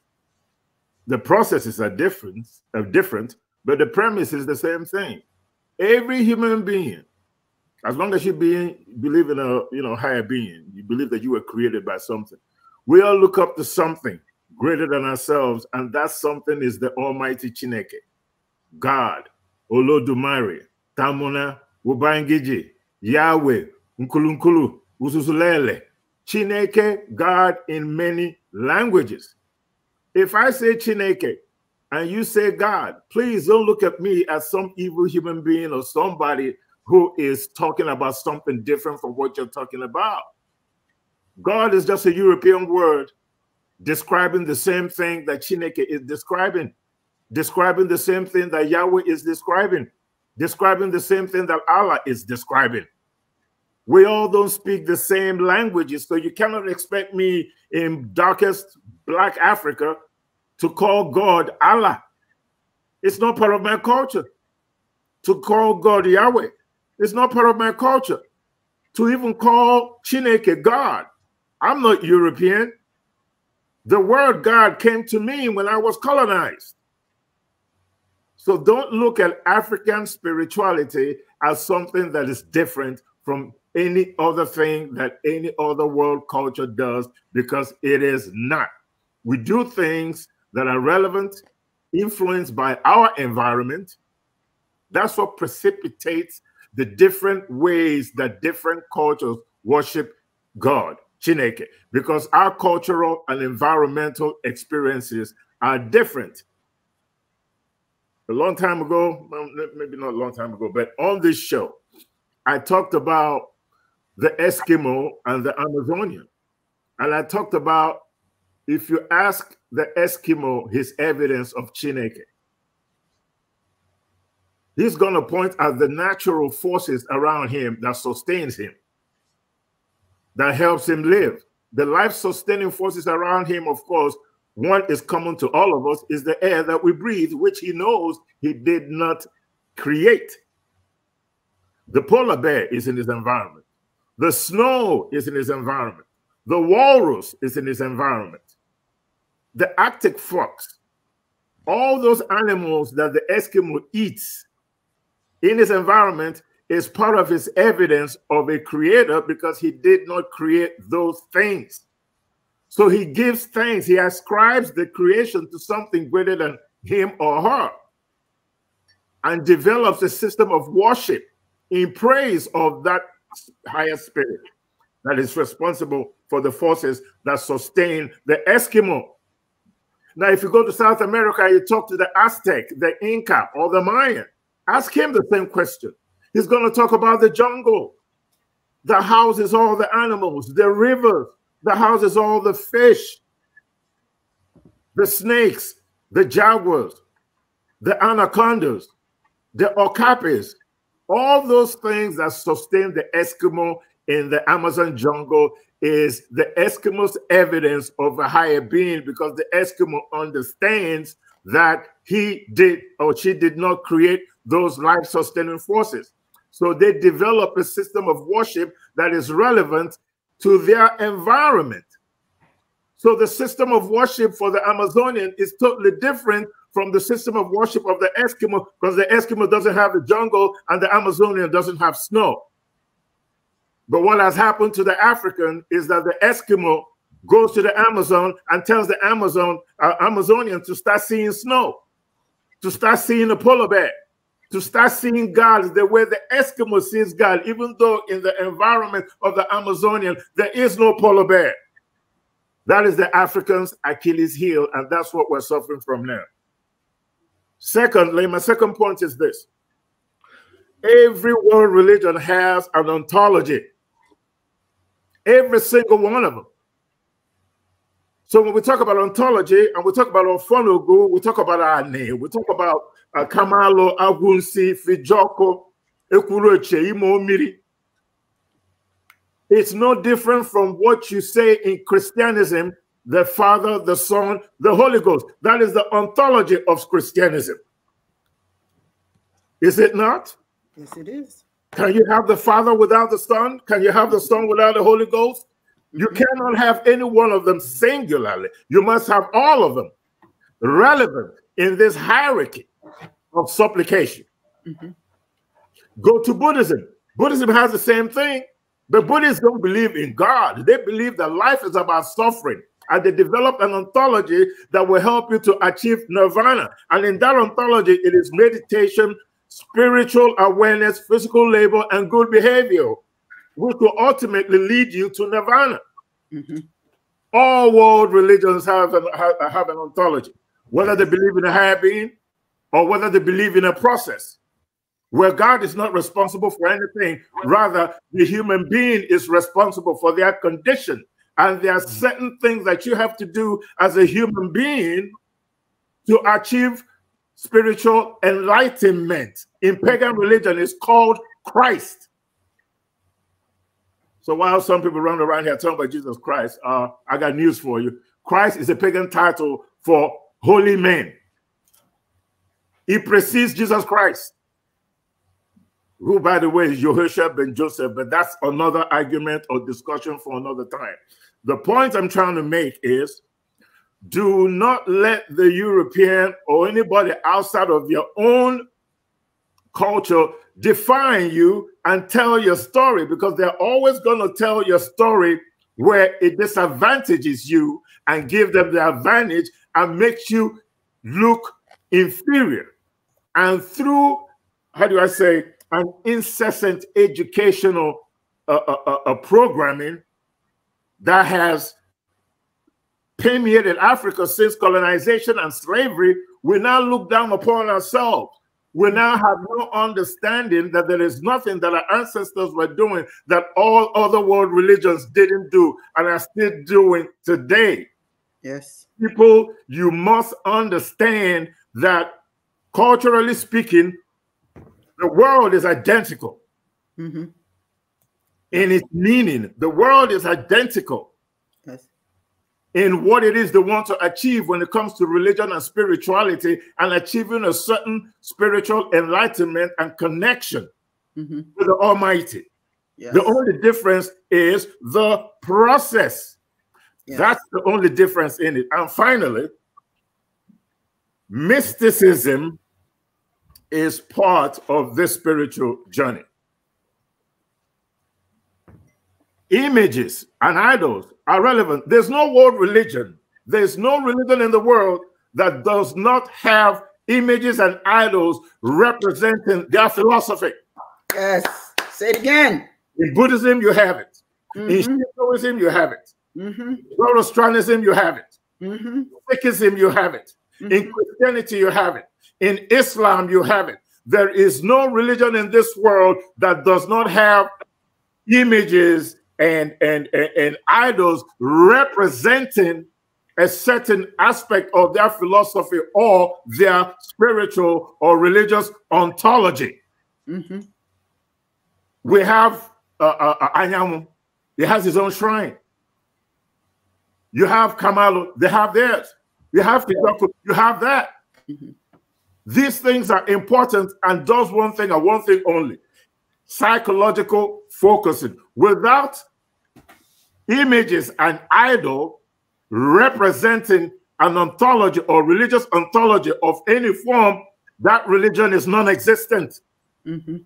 S2: The processes are different, are different, but the premise is the same thing. Every human being as long as you being believe in a you know higher being, you believe that you were created by something. We all look up to something greater than ourselves, and that something is the Almighty Chineke, God, Olodumare, Tamuna, Wubangiji, Yahweh, Nkulunkulu, Ususulele, Chineke, God in many languages. If I say Chineke and you say God, please don't look at me as some evil human being or somebody who is talking about something different from what you're talking about. God is just a European word describing the same thing that Chineke is describing, describing the same thing that Yahweh is describing, describing the same thing that Allah is describing. We all don't speak the same languages, so you cannot expect me in darkest black Africa to call God Allah. It's not part of my culture to call God Yahweh. It's not part of my culture to even call Chineke God. I'm not European. The word God came to me when I was colonized. So don't look at African spirituality as something that is different from any other thing that any other world culture does because it is not. We do things that are relevant, influenced by our environment. That's what precipitates the different ways that different cultures worship God, Chineke, because our cultural and environmental experiences are different. A long time ago, maybe not a long time ago, but on this show, I talked about the Eskimo and the Amazonian. And I talked about if you ask the Eskimo his evidence of Chineke, He's going to point at the natural forces around him that sustains him, that helps him live. The life-sustaining forces around him, of course, one is common to all of us, is the air that we breathe, which he knows he did not create. The polar bear is in his environment. The snow is in his environment. The walrus is in his environment. The Arctic fox, all those animals that the Eskimo eats in his environment is part of his evidence of a creator because he did not create those things. So he gives thanks. He ascribes the creation to something greater than him or her and develops a system of worship in praise of that higher spirit that is responsible for the forces that sustain the Eskimo. Now, if you go to South America, you talk to the Aztec, the Inca, or the Mayan. Ask him the same question. He's going to talk about the jungle that houses all the animals, the rivers that houses all the fish, the snakes, the jaguars, the anacondas, the okapis, all those things that sustain the Eskimo in the Amazon jungle is the Eskimo's evidence of a higher being because the Eskimo understands that he did or she did not create those life sustaining forces. So they develop a system of worship that is relevant to their environment. So the system of worship for the Amazonian is totally different from the system of worship of the Eskimo because the Eskimo doesn't have the jungle and the Amazonian doesn't have snow. But what has happened to the African is that the Eskimo goes to the Amazon and tells the Amazon uh, Amazonian to start seeing snow, to start seeing a polar bear to start seeing God the way the Eskimo sees God, even though in the environment of the Amazonian, there is no polar bear. That is the African's Achilles heel, and that's what we're suffering from now. Secondly, my second point is this. Every world religion has an ontology. Every single one of them. So when we talk about ontology and we talk about our funugu, we talk about our name, we talk about akamalo Agunsi fijoko ekuroche Imomiri. it's no different from what you say in christianism the father the son the holy ghost that is the ontology of christianism is it not
S1: yes it is
S2: can you have the father without the son can you have the son without the holy ghost you cannot have any one of them singularly. You must have all of them relevant in this hierarchy of supplication. Mm-hmm. Go to Buddhism. Buddhism has the same thing, but Buddhists don't believe in God. They believe that life is about suffering. And they developed an ontology that will help you to achieve nirvana. And in that ontology, it is meditation, spiritual awareness, physical labor, and good behavior, which will ultimately lead you to nirvana. Mm-hmm. All world religions have an, have, have an ontology, whether they believe in a higher being, or whether they believe in a process where God is not responsible for anything. Rather, the human being is responsible for their condition. And there are certain things that you have to do as a human being to achieve spiritual enlightenment. In pagan religion, it's called Christ. So while some people run around here talking about Jesus Christ, uh, I got news for you. Christ is a pagan title for holy men. He precedes Jesus Christ, who, by the way, is Yehoshua ben Joseph, but that's another argument or discussion for another time. The point I'm trying to make is do not let the European or anybody outside of your own culture define you and tell your story because they're always going to tell your story where it disadvantages you and give them the advantage and makes you look inferior and through how do I say an incessant educational uh, uh, uh, uh, programming that has permeated Africa since colonization and slavery, we now look down upon ourselves. We now have no understanding that there is nothing that our ancestors were doing that all other world religions didn't do and are still doing today. Yes. People, you must understand that Culturally speaking, the world is identical mm-hmm. in its meaning. The world is identical yes. in what it is they want to achieve when it comes to religion and spirituality and achieving a certain spiritual enlightenment and connection mm-hmm. to the Almighty. Yes. The only difference is the process. Yes. That's the only difference in it. And finally, mysticism is part of this spiritual journey. Images and idols are relevant. There's no world religion. There's no religion in the world that does not have images and idols representing their philosophy. Yes. Say it again. In Buddhism, you have it. Mm -hmm. In Shintoism, mm-hmm. you have it. Mm-hmm. Zoroastrianism, you have it. Mm -hmm. Sikhism, you have it. Mm -hmm. In mm-hmm. Christianity, you have it. In Islam, you have it. There is no religion in this world that does not have images and, and, and, and idols representing a certain aspect of their philosophy or their spiritual or religious ontology. Mm -hmm. We have uh, uh, uh Anyamu, he has his own shrine. You have Kamalu, they have theirs. You have Tijaku, you have that. Mm -hmm. These things are important and does one thing and one thing only psychological focusing. Without images and idol representing an ontology or religious ontology of any form, that religion is non existent. Mm -hmm.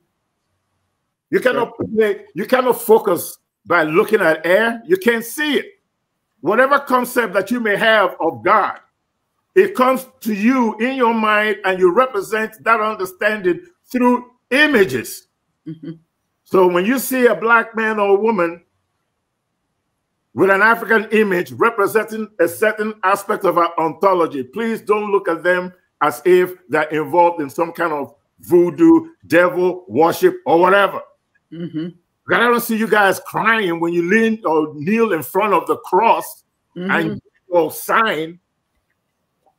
S2: You cannot you cannot focus by looking at air. You can't see it. Whatever concept that you may have of God, it comes to you in your mind, and you represent that understanding through images. Mm-hmm. So when you see a black man or woman with an African image representing a certain aspect of our ontology, please don't look at them as if they're involved in some kind of voodoo, devil worship, or whatever. Mm-hmm. I don't see you guys crying when you lean or kneel in front of the cross mm-hmm. and your sign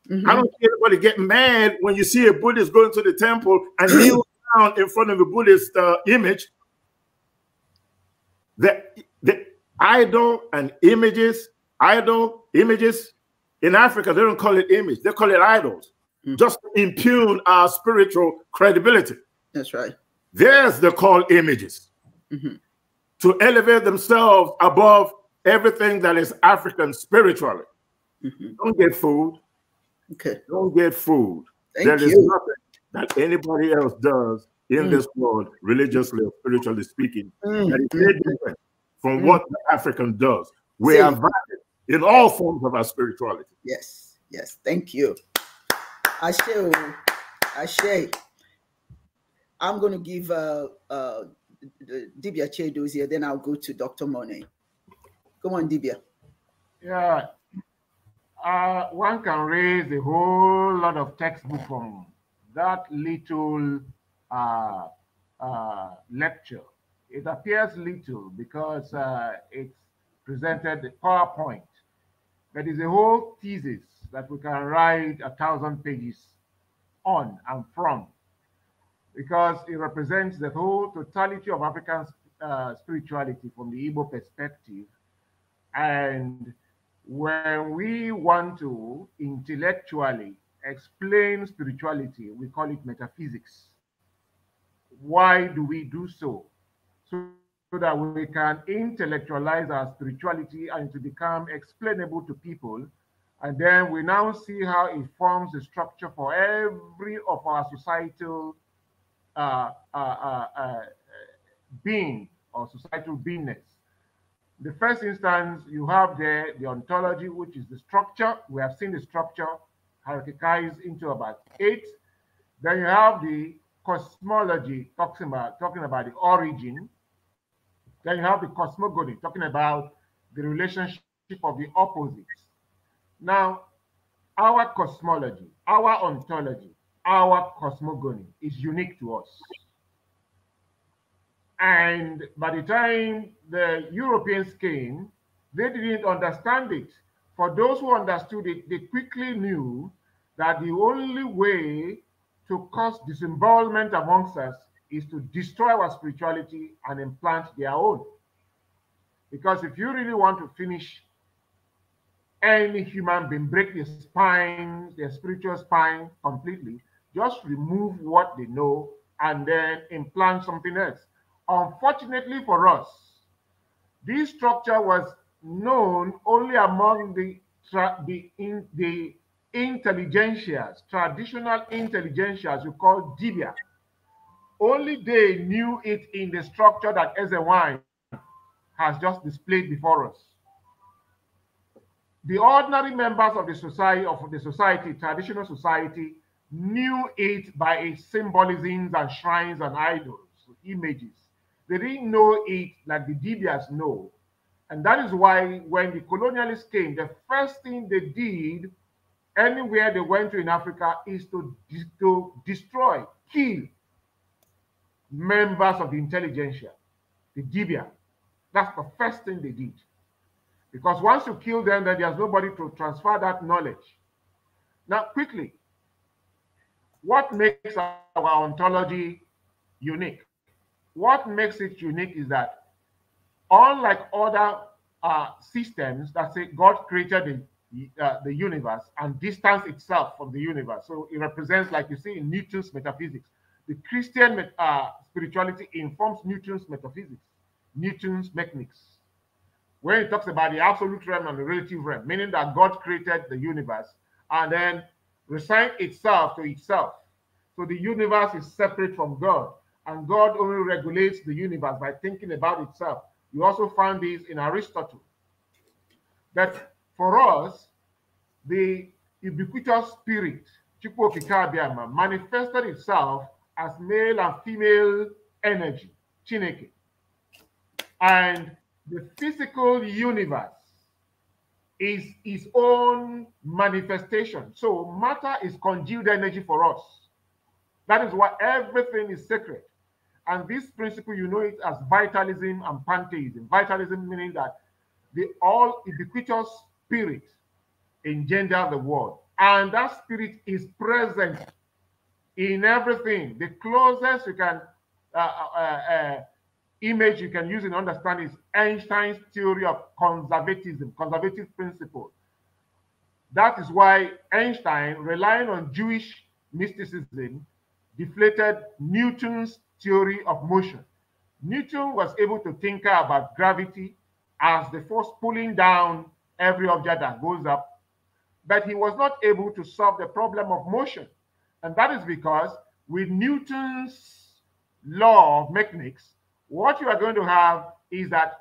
S2: Mm-hmm. I don't see anybody get mad when you see a Buddhist going to the temple and kneel down in front of a Buddhist uh, image. The, the idol and images, idol images in Africa, they don't call it image, they call it idols, mm-hmm. just to impugn our spiritual credibility. That's right. There's the call images mm-hmm. to elevate themselves above everything that is African spiritually. Mm-hmm. Don't get fooled Okay. Don't get fooled. Thank there you. is nothing that anybody else does in mm. this world, religiously or spiritually speaking, mm. that is mm. different from mm. what the African does. We See. are valid
S1: in all forms of our spirituality. Yes, yes. Thank you. I say, I say, I'm going to give uh, uh, Dibia Chedo's here, then I'll go to Dr. Monet. Come on, Dibia.
S3: Yeah, uh, one can raise a whole lot of textbook from that little uh, uh, lecture. It appears little because uh, it's presented in PowerPoint. That is a whole thesis that we can write a thousand pages on and from because it represents the whole totality of African uh, spirituality from the Igbo perspective and when we want to intellectually explain spirituality, we call it metaphysics. Why do we do so? So, so that we can intellectualize our spirituality and to become explainable to people. And then we now see how it forms the structure for every of our societal uh, uh, uh, uh being or societal beingness the first instance you have there the ontology which is the structure we have seen the structure hierarchized into about eight then you have the cosmology talking about talking about the origin then you have the cosmogony talking about the relationship of the opposites now our cosmology our ontology our cosmogony is unique to us and by the time the Europeans came, they didn't understand it. For those who understood it, they quickly knew that the only way to cause disembowelment amongst us is to destroy our spirituality and implant their own. Because if you really want to finish any human being, break their spine, their spiritual spine completely, just remove what they know and then implant something else. Unfortunately for us, this structure was known only among the, the, in, the intelligentsias, traditional intelligentsias, we call Dibia. Only they knew it in the structure that Ezewine has just displayed before us. The ordinary members of the society, of the society, traditional society, knew it by its symbolisms and shrines and idols, images. They didn't know it like the Dibias know. And that is why when the colonialists came, the first thing they did anywhere they went to in Africa is to, to destroy, kill members of the intelligentsia, the Dibia. That's the first thing they did. Because once you kill them, then there's nobody to transfer that knowledge. Now, quickly, what makes our ontology unique? What makes it unique is that, unlike other uh, systems that say God created the, uh, the universe and distance itself from the universe, so it represents, like you see in Newton's metaphysics, the Christian uh, spirituality informs Newton's metaphysics, Newton's mechanics. When he talks about the absolute realm and the relative realm, meaning that God created the universe and then resigned itself to itself. So the universe is separate from God and God only regulates the universe by thinking about itself. You also find this in Aristotle. That for us, the ubiquitous spirit, Chukwokikabiama, manifested itself as male and female energy, Chineke. And the physical universe is its own manifestation. So matter is congealed energy for us. That is why everything is sacred. And this principle, you know it as vitalism and pantheism. Vitalism meaning that the all ubiquitous spirit engender the world. And that spirit is present in everything. The closest you can uh, uh, uh, uh image you can use and understand is Einstein's theory of conservatism, conservative principle. That is why Einstein, relying on Jewish mysticism, deflated Newton's theory of motion. Newton was able to tinker about gravity as the force pulling down every object that goes up, but he was not able to solve the problem of motion. And that is because with Newton's law of mechanics, what you are going to have is that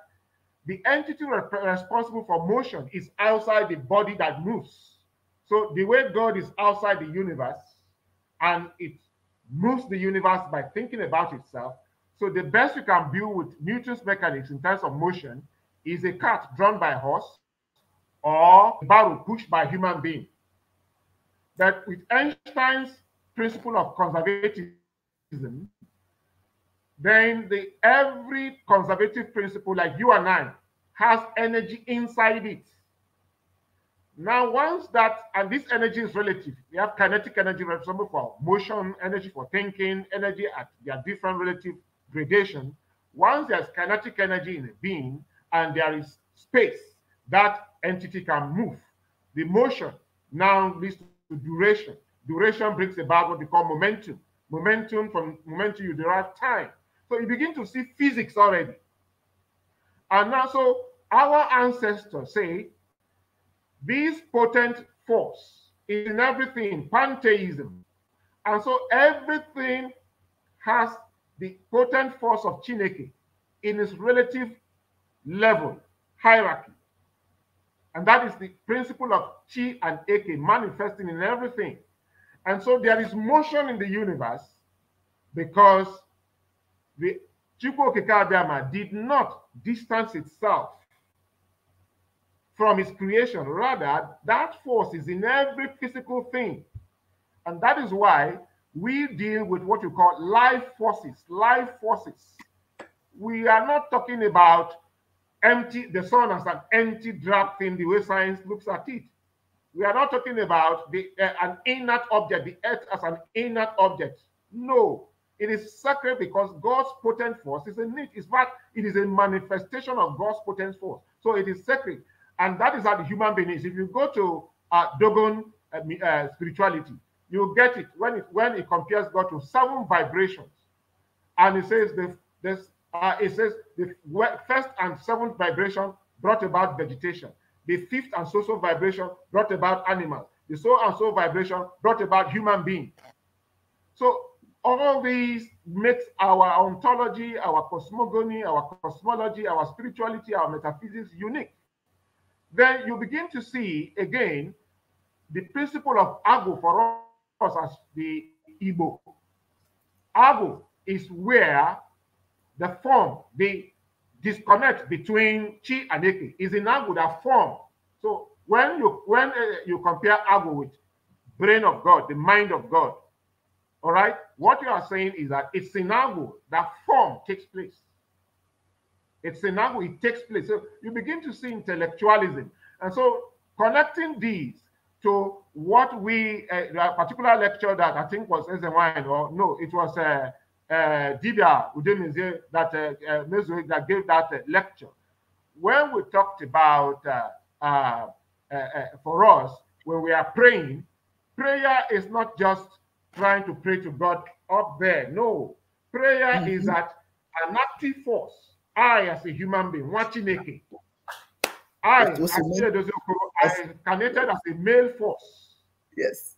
S3: the entity responsible for motion is outside the body that moves. So the way God is outside the universe and it moves the universe by thinking about itself. So the best you can build with Newton's mechanics in terms of motion is a cart drawn by a horse or a barrel pushed by a human being. But with Einstein's principle of conservatism, then the every conservative principle like you and I has energy inside it. Now, once that, and this energy is relative, we have kinetic energy responsible for motion, energy for thinking, energy at their different relative gradation. Once there's kinetic energy in a being and there is space, that entity can move. The motion now leads to duration. Duration brings about what we call momentum. Momentum, from momentum, you derive time. So you begin to see physics already. And now, so our ancestors say this potent force is in everything, pantheism. And so everything has the potent force of Chineke in its relative level, hierarchy. And that is the principle of Chi and Eke manifesting in everything. And so there is motion in the universe because the Chukwokekabiyama did not distance itself from his creation. Rather, that force is in every physical thing. And that is why we deal with what you call life forces, life forces. We are not talking about empty, the sun as an empty drop thing, the way science looks at it. We are not talking about the, uh, an inert object, the earth as an inert object. No, it is sacred because God's potent force is in it. In fact, it is a manifestation of God's potent force. So it is sacred. And that is how the human being is. If you go to uh, Dogon uh, uh, spirituality, you get it when it when it compares God to seven vibrations, and it says the this uh, it says the first and seventh vibration brought about vegetation, the fifth and social vibration brought about animals, the soul and soul vibration brought about human being. So all these makes our ontology, our cosmogony, our cosmology, our spirituality, our metaphysics unique then you begin to see again the principle of Agu for us as the Igbo. Agu is where the form, the disconnect between Chi and Eke is in Agu that form. So when you when uh, you compare Agu with brain of God, the mind of God, all right, what you are saying is that it's in Agu that form takes place. It's Sinago, it takes place. So you begin to see intellectualism. And so connecting these to what we, uh, particular lecture that I think was Wine or no, it was uh, uh, Dibia Udemize that, uh, uh, that gave that uh, lecture. When we talked about, uh, uh, uh, uh, for us, when we are praying, prayer is not just trying to pray to God up there. No, prayer mm -hmm. is mm-hmm. at an active force I, as a human being, watching Chineke, I, I incarnated as a male force. Yes.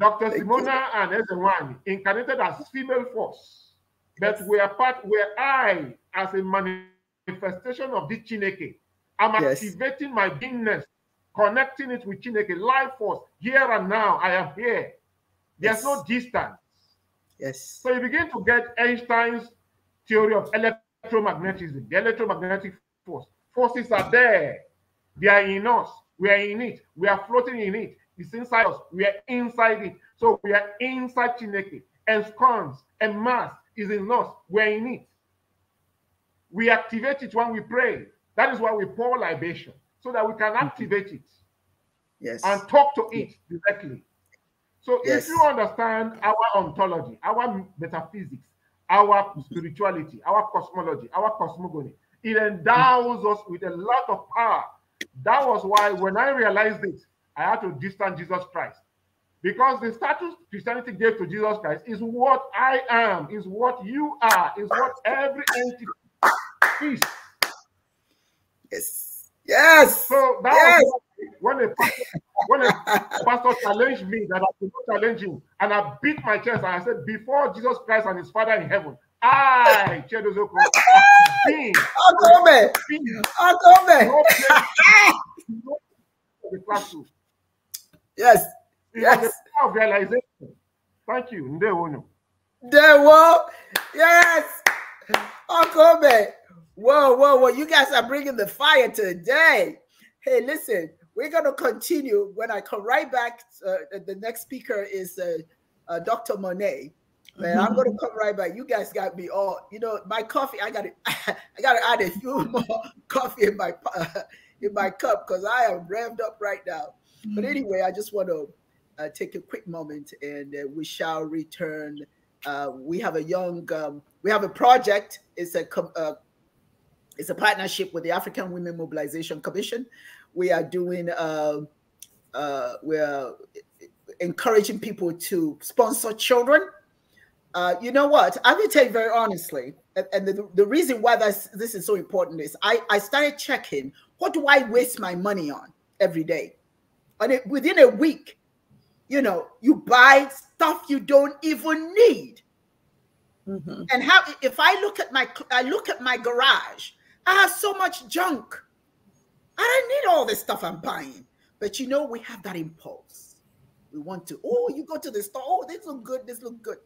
S3: Dr. Thank Simona you. and Ezewani incarnated as female force. Yes. But we are part where I, as a manifestation of the Chineke, I'm yes. activating my beingness, connecting it with Chineke, life force, here and now. I am here. There's yes. no distance. Yes. So you begin to get Einstein's theory of electricity electromagnetism, the electromagnetic force. Forces are there. They are in us. We are in it. We are floating in it. It's inside us. We are inside it. So we are inside Chineke. And scorns and mass is in us. We are in it. We activate it when we pray. That is why we pour libation, so that we can mm-hmm. activate it. Yes. And talk to it directly. So yes. if you understand our ontology, our metaphysics, our spirituality, our cosmology, our cosmogony. It endows us with a lot of power. That was why when I realized it, I had to distance Jesus Christ. Because the status Christianity gave to Jesus Christ is what I am, is what you are, is what every entity is. Yes. Yes. So that yes. was when a pastor, when a pastor challenged me that I could not challenge him, and I beat my chest and I said, before Jesus Christ and His Father in heaven, I, Chedozoko, being, Akome, Akome, the classroom. Yes. It yes. Was a of realization. Thank you. Ndewo. Ndewo. Yes.
S1: Akome. Whoa, whoa, whoa. You guys are bringing the fire today. Hey, listen, we're going to continue. When I come right back, uh, the next speaker is uh, uh, Dr. Monet. Man, I'm gonna come right back. You guys got me all. You know, my coffee. I gotta, I gotta add a few more coffee in my in my cup because I am rammed up right now. But mm. anyway, I just want to uh, take a quick moment, and uh, we shall return. Uh, we have a young, um, we have a project. It's a com- it's a partnership with the African Women Mobilization Commission. We are doing, uh, uh, we're encouraging people to sponsor children. Uh, you know what? I'm going to tell you very honestly, and, and the, the, reason why this, this is so important is I, I started checking what do I waste my money on every day? And it, within a week, you know, you buy stuff you don't even need. Mm -hmm. And how if I look at my I look at my garage, I have so much junk. I don't need all this stuff I'm buying. But you know, we have that impulse. We want to, oh, you go to the store, oh, this look good, this look good.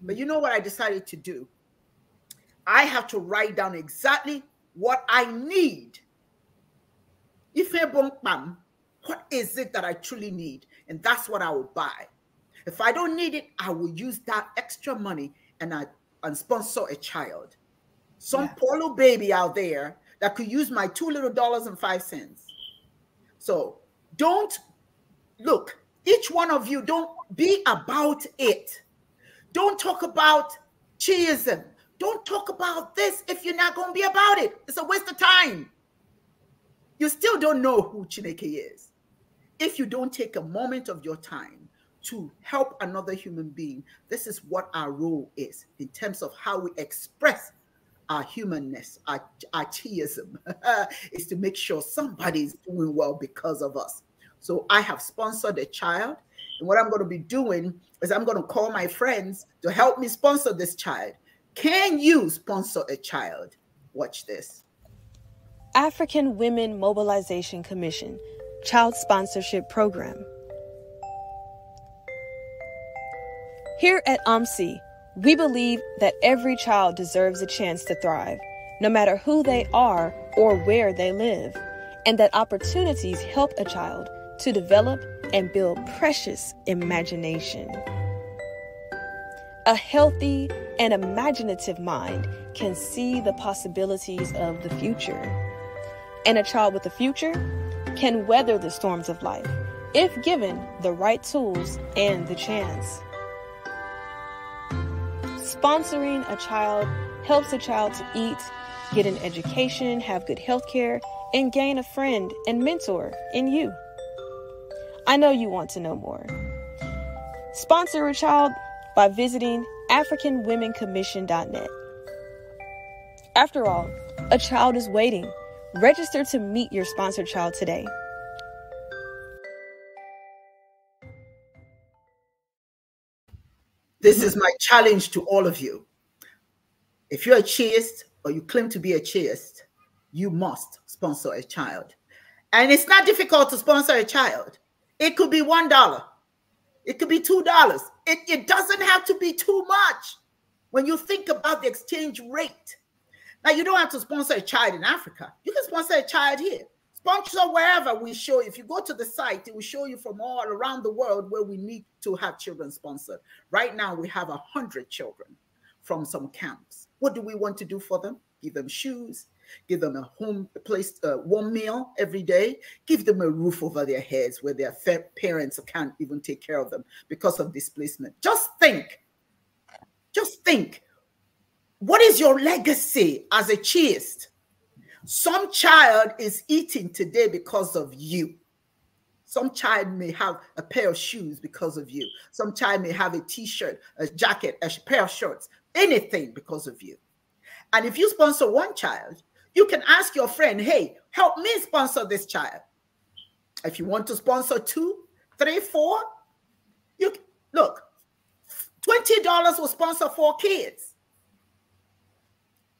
S1: But you know what I decided to do? I have to write down exactly what I need. If I what is it that I truly need? And that's what I will buy. If I don't need it, I will use that extra money and I and sponsor a child some yeah. poor little baby out there that could use my two little dollars and five cents. So don't look, each one of you, don't be about it. Don't talk about chiism. Don't talk about this if you're not going to be about it. It's a waste of time. You still don't know who Chineke is if you don't take a moment of your time to help another human being. This is what our role is in terms of how we express our humanness, our, our is to make sure somebody is doing well because of us. So I have sponsored a child. And what I'm going to be doing is I'm going to call my friends to help me sponsor this child. Can you sponsor a child? Watch this.
S6: African Women Mobilization Commission Child Sponsorship Program. Here at OMSI, we believe that every child deserves a chance to thrive, no matter who they are or where they live, and that opportunities help a child to develop and build precious imagination. A healthy and imaginative mind can see the possibilities of the future. And a child with a future can weather the storms of life if given the right tools and the chance. Sponsoring a child helps a child to eat, get an education, have good health care, and gain a friend and mentor in you. I know you want to know more. Sponsor a child by visiting AfricanWomenCommission.net. After all, a child is waiting. Register to meet your sponsored child today.
S1: This is my challenge to all of you. If you're a chaste or you claim to be a chaste, you must sponsor a child. And it's not difficult to sponsor a child. It could be $1. It could be $2. It, it doesn't have to be too much when you think about the exchange rate. Now, you don't have to sponsor a child in Africa. You can sponsor a child here sponsor wherever we show. If you go to the site, it will show you from all around the world where we need to have children sponsored. Right now, we have 100 children from some camps. What do we want to do for them? Give them shoes, give them a home a place, a uh, warm meal every day, give them a roof over their heads where their parents can't even take care of them because of displacement. Just think, just think, what is your legacy as a chaste? Some child is eating today because of you. Some child may have a pair of shoes because of you. Some child may have a t shirt, a jacket, a pair of shorts, anything because of you. And if you sponsor one child, you can ask your friend, hey, help me sponsor this child. If you want to sponsor two, three, four, you look, $20 will sponsor four kids.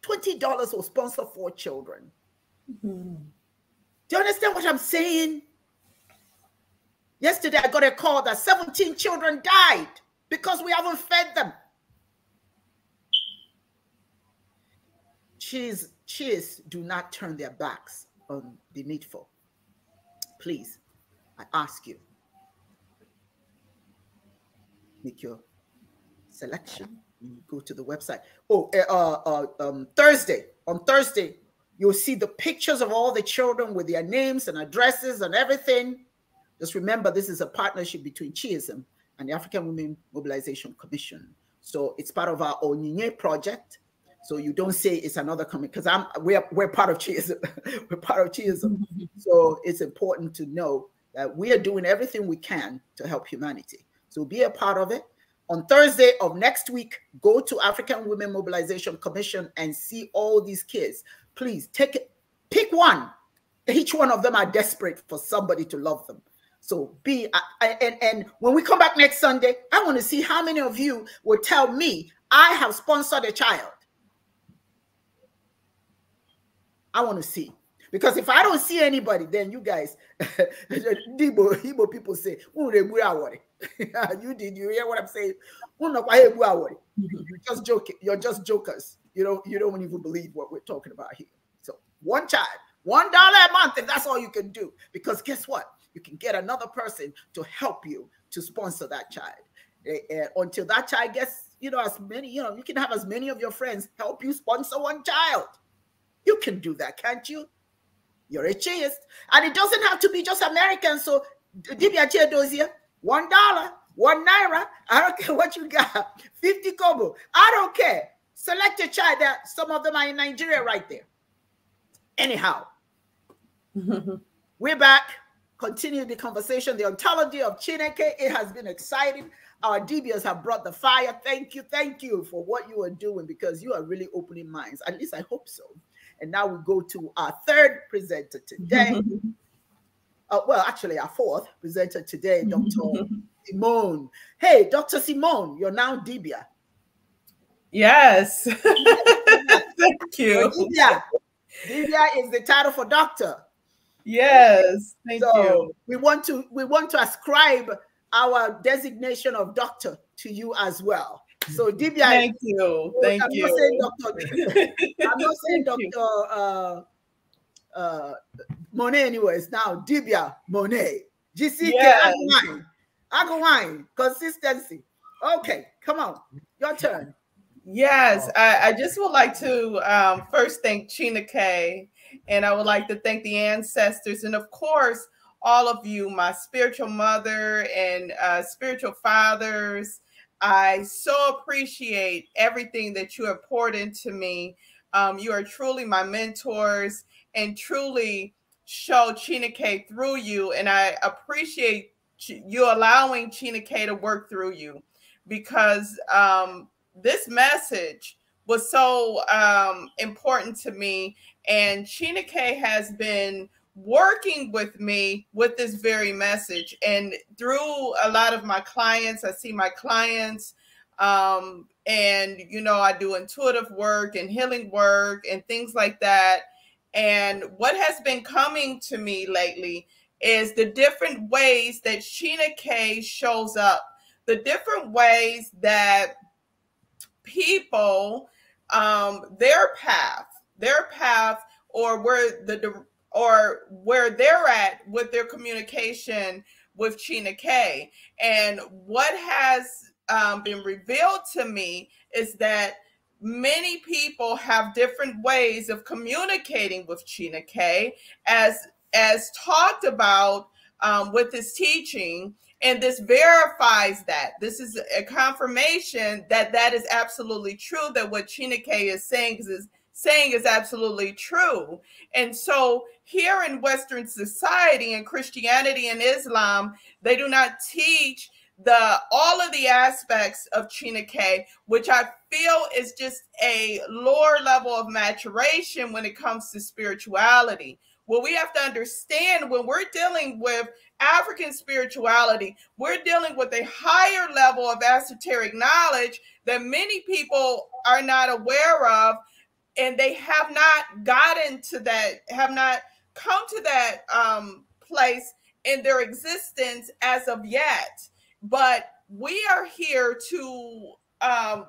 S1: $20 will sponsor four children. Mm-hmm. Do you understand what I'm saying? Yesterday, I got a call that 17 children died because we haven't fed them. Cheers, cheers, do not turn their backs on the needful. Please, I ask you, make your selection you go to the website. Oh, eh, uh, uh, um, Thursday. On Thursday, you'll see the pictures of all the children with their names and addresses and everything. Just remember, this is a partnership between Chiism and the African Women Mobilization Commission. So it's part of our Onyinye project. So you don't say it's another coming because I'm we're we're part of Chiism. we're part of Chiism. so it's important to know that we are doing everything we can to help humanity. So be a part of it on Thursday of next week, go to African Women Mobilization Commission and see all these kids. Please take it, pick one. Each one of them are desperate for somebody to love them. So be and and when we come back next Sunday, I want to see how many of you will tell me I have sponsored a child. I want to see. Because if I don't see anybody, then you guys, Igbo, Igbo people say, you did, you hear what I'm saying? You're just joking. You're just jokers. You don't, you don't even believe what we're talking about here. So one child, one dollar a month, and that's all you can do. Because guess what? You can get another person to help you to sponsor that child. Eh, eh, until that child gets, you know, as many, you know, you can have as many of your friends help you sponsor one child. You can do that, can't you? you're a chaste, And it doesn't have to be just American. So Dibia Chedosia, one dollar, one naira. I don't care what you got. 50 kobo. I don't care. Select a child that some of them are in Nigeria right there. Anyhow, we're back. Continue the conversation. The ontology of Chineke. It has been exciting. Our DBS have brought the fire. Thank you. Thank you for what you are doing because you are really opening minds. At least I hope so. And now we go to our third presenter today. uh, well, actually, our fourth presenter today, Dr. Simone. Hey, Dr. Simone, you're now Dibia. Yes. Thank you. Dibia. Dibia is the title for doctor. Yes. Thank so you. We want to we want to ascribe our designation of doctor to you as well. So Dibia, thank you, so oh, thank I'm you. Not saying doctor, I'm not saying doctor uh, uh, Monet. Anyways, now Dibia Monet, GCK yes. Agawine, consistency. Okay,
S5: come on, your turn. Yes, I, I just would like to um, first thank Chena Kay, and I would like to thank the ancestors, and of course all of you, my spiritual mother and uh, spiritual fathers I so appreciate everything that you have poured into me. Um, you are truly my mentors and truly show K through you. And I appreciate you allowing K to work through you because um, this message was so um, important to me. And K has been – working with me with this very message. And through a lot of my clients, I see my clients, um, and you know, I do intuitive work and healing work and things like that. And what has been coming to me lately is the different ways that Sheena K shows up, the different ways that people, um, their path, their path, or where the or where they're at with their communication with Chena K. And what has um, been revealed to me is that many people have different ways of communicating with Chena K, as as talked about um, with this teaching. And this verifies that. This is a confirmation that that is absolutely true, that what Chyna K is saying is saying is absolutely true. And so here in Western society and Christianity and Islam, they do not teach the all of the aspects of Chinake, which I feel is just a lower level of maturation when it comes to spirituality. What we have to understand when we're dealing with African spirituality, we're dealing with a higher level of esoteric knowledge that many people are not aware of and they have not gotten to that, have not come to that um, place in their existence as of yet. But we are here to um,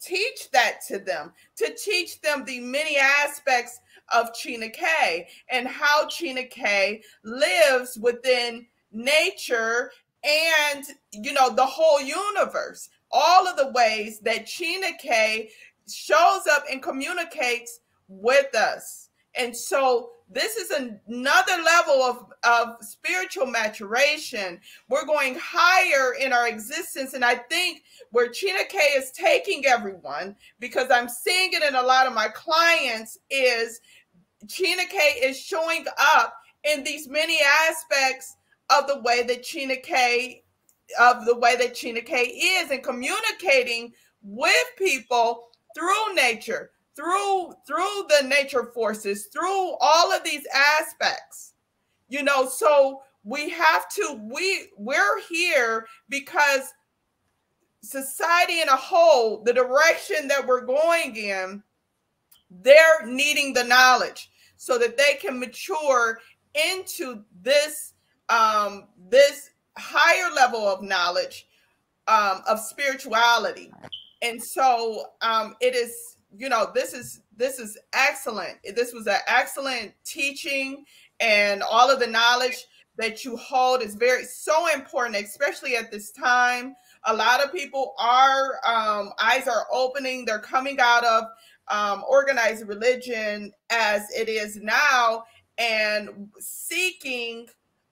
S5: teach that to them, to teach them the many aspects of Chena K and how Chena K lives within nature and you know the whole universe all of the ways that Chena K shows up and communicates with us. And so this is another level of, of spiritual maturation. We're going higher in our existence. And I think where Chena K is taking everyone, because I'm seeing it in a lot of my clients, is Chena K is showing up in these many aspects of the way that Chena K of the way that Chena K is and communicating with people through nature, through through the nature forces, through all of these aspects. You know, so we have to we we're here because society in a whole, the direction that we're going in, they're needing the knowledge so that they can mature into this um, this higher level of knowledge um, of spirituality and so um, it is you know this is this is excellent this was an excellent teaching and all of the knowledge that you hold is very so important especially at this time a lot of people are um, eyes are opening they're coming out of um, organized religion as it is now and seeking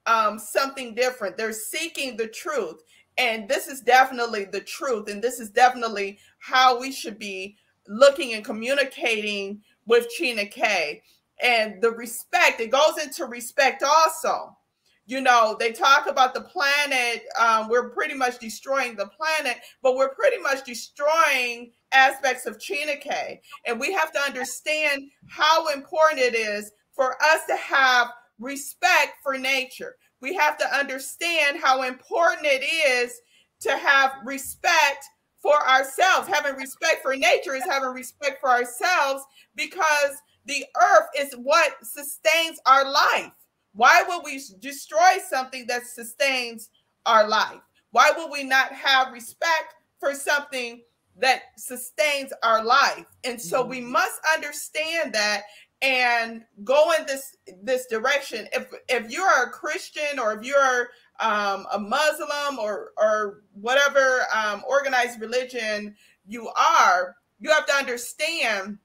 S5: um, something different they're seeking the truth and this is definitely the truth. And this is definitely how we should be looking and communicating with China K. And the respect, it goes into respect also. You know, they talk about the planet. Um, we're pretty much destroying the planet, but we're pretty much destroying aspects of China K. And we have to understand how important it is for us to have respect for nature, we have to understand how important it is to have respect for ourselves. Having respect for nature is having respect for ourselves because the earth is what sustains our life. Why would we destroy something that sustains our life? Why would we not have respect for something that sustains our life? And so we mm-hmm. must understand that and go in this this direction if if you're a christian or if you're um, a muslim or or whatever um, organized religion you are you have to understand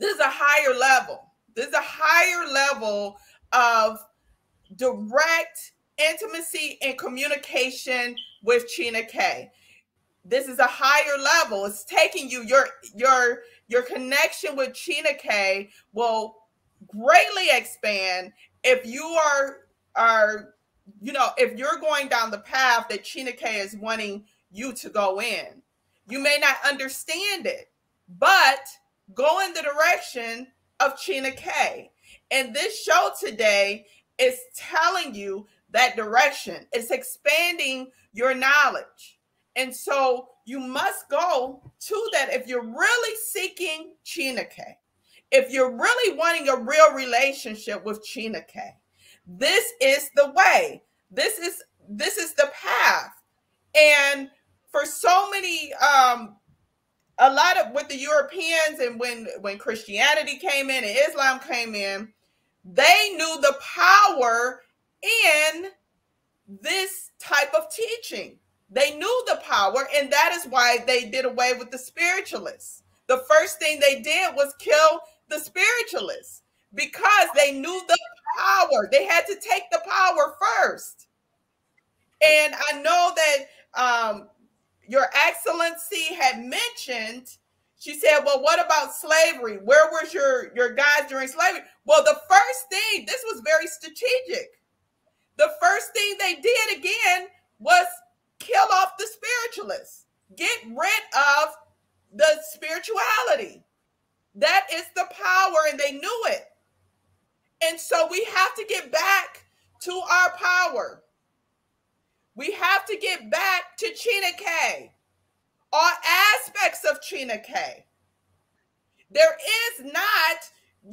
S5: this is a higher level this is a higher level of direct intimacy and communication with Chyna K this is a higher level it's taking you your your your connection with Chyna K will greatly expand if you are are you know if you're going down the path that Chyna K is wanting you to go in you may not understand it but go in the direction of Chyna K and this show today is telling you that direction it's expanding your knowledge and so you must go to that if you're really seeking Chineke, if you're really wanting a real relationship with Chineke, this is the way. This is this is the path. And for so many um a lot of with the Europeans and when when Christianity came in and Islam came in, they knew the power in this type of teaching they knew the power, and that is why they did away with the spiritualists. The first thing they did was kill the spiritualists because they knew the power. They had to take the power first. And I know that um, Your Excellency had mentioned, she said, Well, what about slavery? Where was your, your guys during slavery? Well, the first thing, this was very strategic. The first thing they did again was kill off the spiritualists, get rid of the spirituality. That is the power, and they knew it. And so we have to get back to our power. We have to get back to Chena K, all aspects of Chena K. There is not,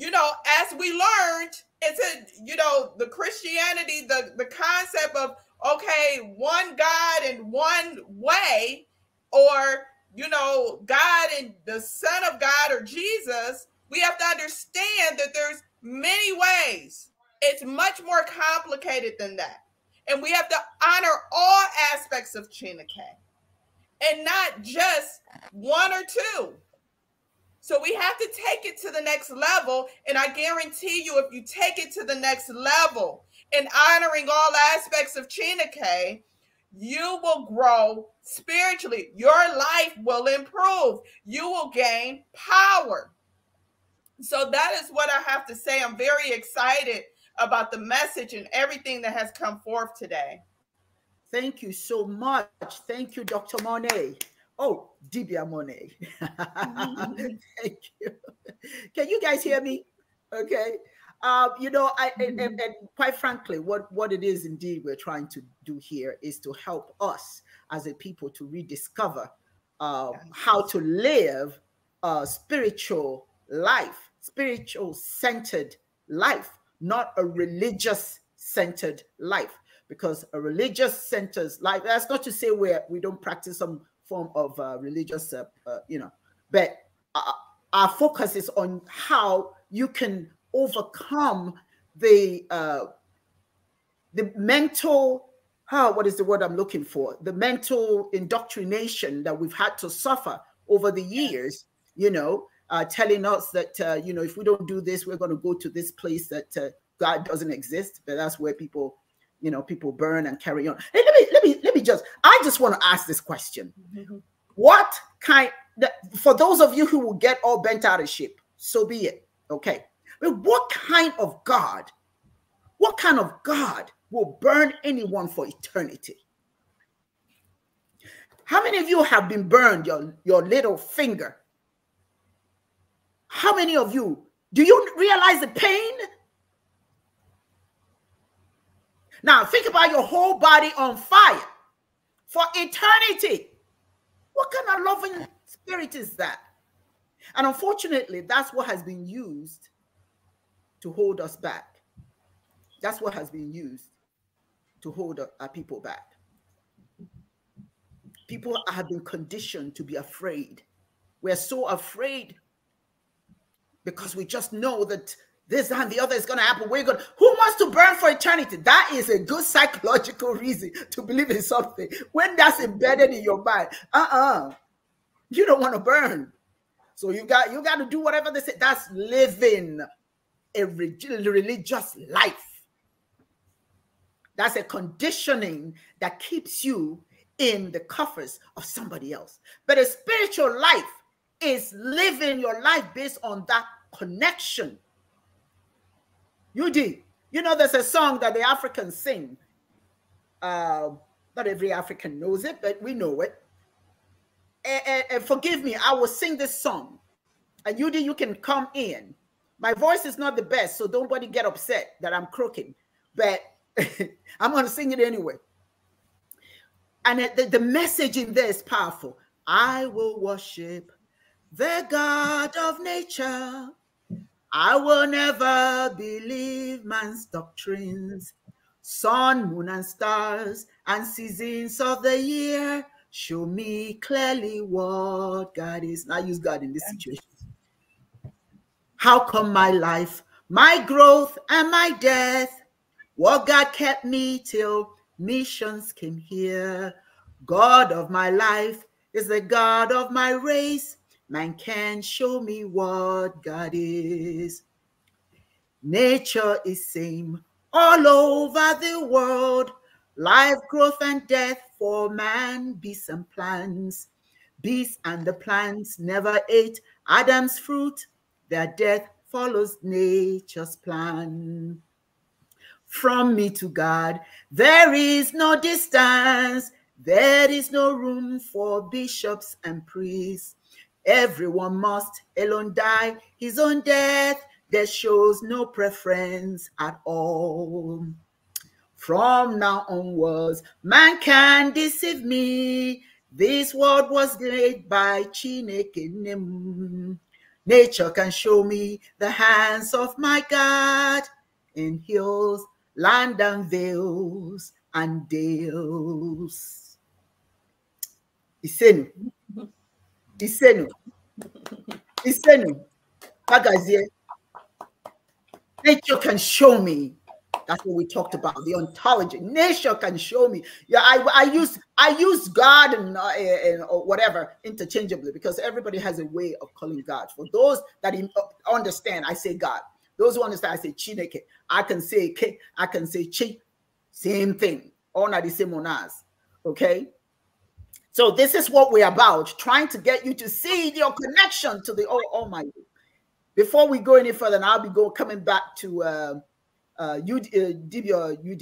S5: you know, as we learned, it's a, you know, the Christianity, the, the concept of okay, one God and one way, or, you know, God and the Son of God or Jesus, we have to understand that there's many ways. It's much more complicated than that. And we have to honor all aspects of K and not just one or two. So we have to take it to the next level. And I guarantee you, if you take it to the next level, in honoring all aspects of Chinake, you will grow spiritually. Your life will improve. You will gain power. So that is what I have to say. I'm very excited about the message and everything that has come forth today.
S1: Thank you so much. Thank you, Dr. Monet. Oh, Dibia Monet. Mm-hmm. Thank you. Can you guys hear me? Okay. Uh, you know, I, and, and, mm-hmm. and, quite frankly, what, what it is indeed we're trying to do here is to help us as a people to rediscover uh, how to live a spiritual life, spiritual centered life, not a religious centered life. Because a religious centered life, that's not to say we we do not practice some form of uh, religious, uh, you know, but our focus is on how you can overcome the uh, the mental how what is the word I'm looking for the mental indoctrination that we've had to suffer over the years. You know, uh, telling us that uh, you know if we don't do this, we're going to go to this place that uh, God doesn't exist. But that's where people, you know, people burn and carry on. Hey, let me let me let me just. I just want to ask this question: mm -hmm. What kind? For those of you who will get all bent out of shape, so be it. Okay, but what kind of God, what kind of God will burn anyone for eternity? How many of you have been burned your, your little finger? How many of you do you realize the pain? Now think about your whole body on fire for eternity. What kind of loving spirit is that? And unfortunately, that's what has been used to hold us back. That's what has been used to hold our people back. People have been conditioned to be afraid. We're so afraid because we just know that this and the other is going to happen. We're going. Who wants to burn for eternity? That is a good psychological reason to believe in something when that's embedded in your mind. Uh-uh, you don't want to burn, so you got you got to do whatever they say. That's living a religious life. That's a conditioning that keeps you in the coffers of somebody else. But a spiritual life is living your life based on that connection. You You know, there's a song that the Africans sing. Uh, not every African knows it, but we know it. And, and, and forgive me, I will sing this song. And you, you can come in my voice is not the best, so don't nobody get upset that I'm croaking, but I'm going to sing it anyway. And the, the message in there is powerful. I will worship the God of nature. I will never believe man's doctrines. Sun, moon, and stars, and seasons of the year show me clearly what God is. Now use God in this situation. How come my life, my growth, and my death? What God kept me till missions came here. God of my life is the God of my race. Man can show me what God is. Nature is same all over the world. Life, growth, and death for man, beasts and plants. Beasts and the plants never ate Adam's fruit that death follows nature's plan. From me to God, there is no distance, there is no room for bishops and priests. Everyone must alone die his own death There shows no preference at all. From now onwards, man can deceive me. This world was laid by Chineke Nature can show me the hands of my God in hills, land and vales and dales. Isenu. Isenu. Isenu. Pagazie. Nature can show me that's what we talked about. The ontology. Nature can show me. Yeah, I, I use I use God and, uh, and or whatever interchangeably because everybody has a way of calling God. For those that uh, understand, I say God. Those who understand, I say Chineke. I can say K. I can say Chi. Same thing. All are the same on us. Okay. So this is what we're about, trying to get you to see your connection to the Almighty. Before we go any further, and I'll be going coming back to. Uh, uh, UD, uh, DB or UD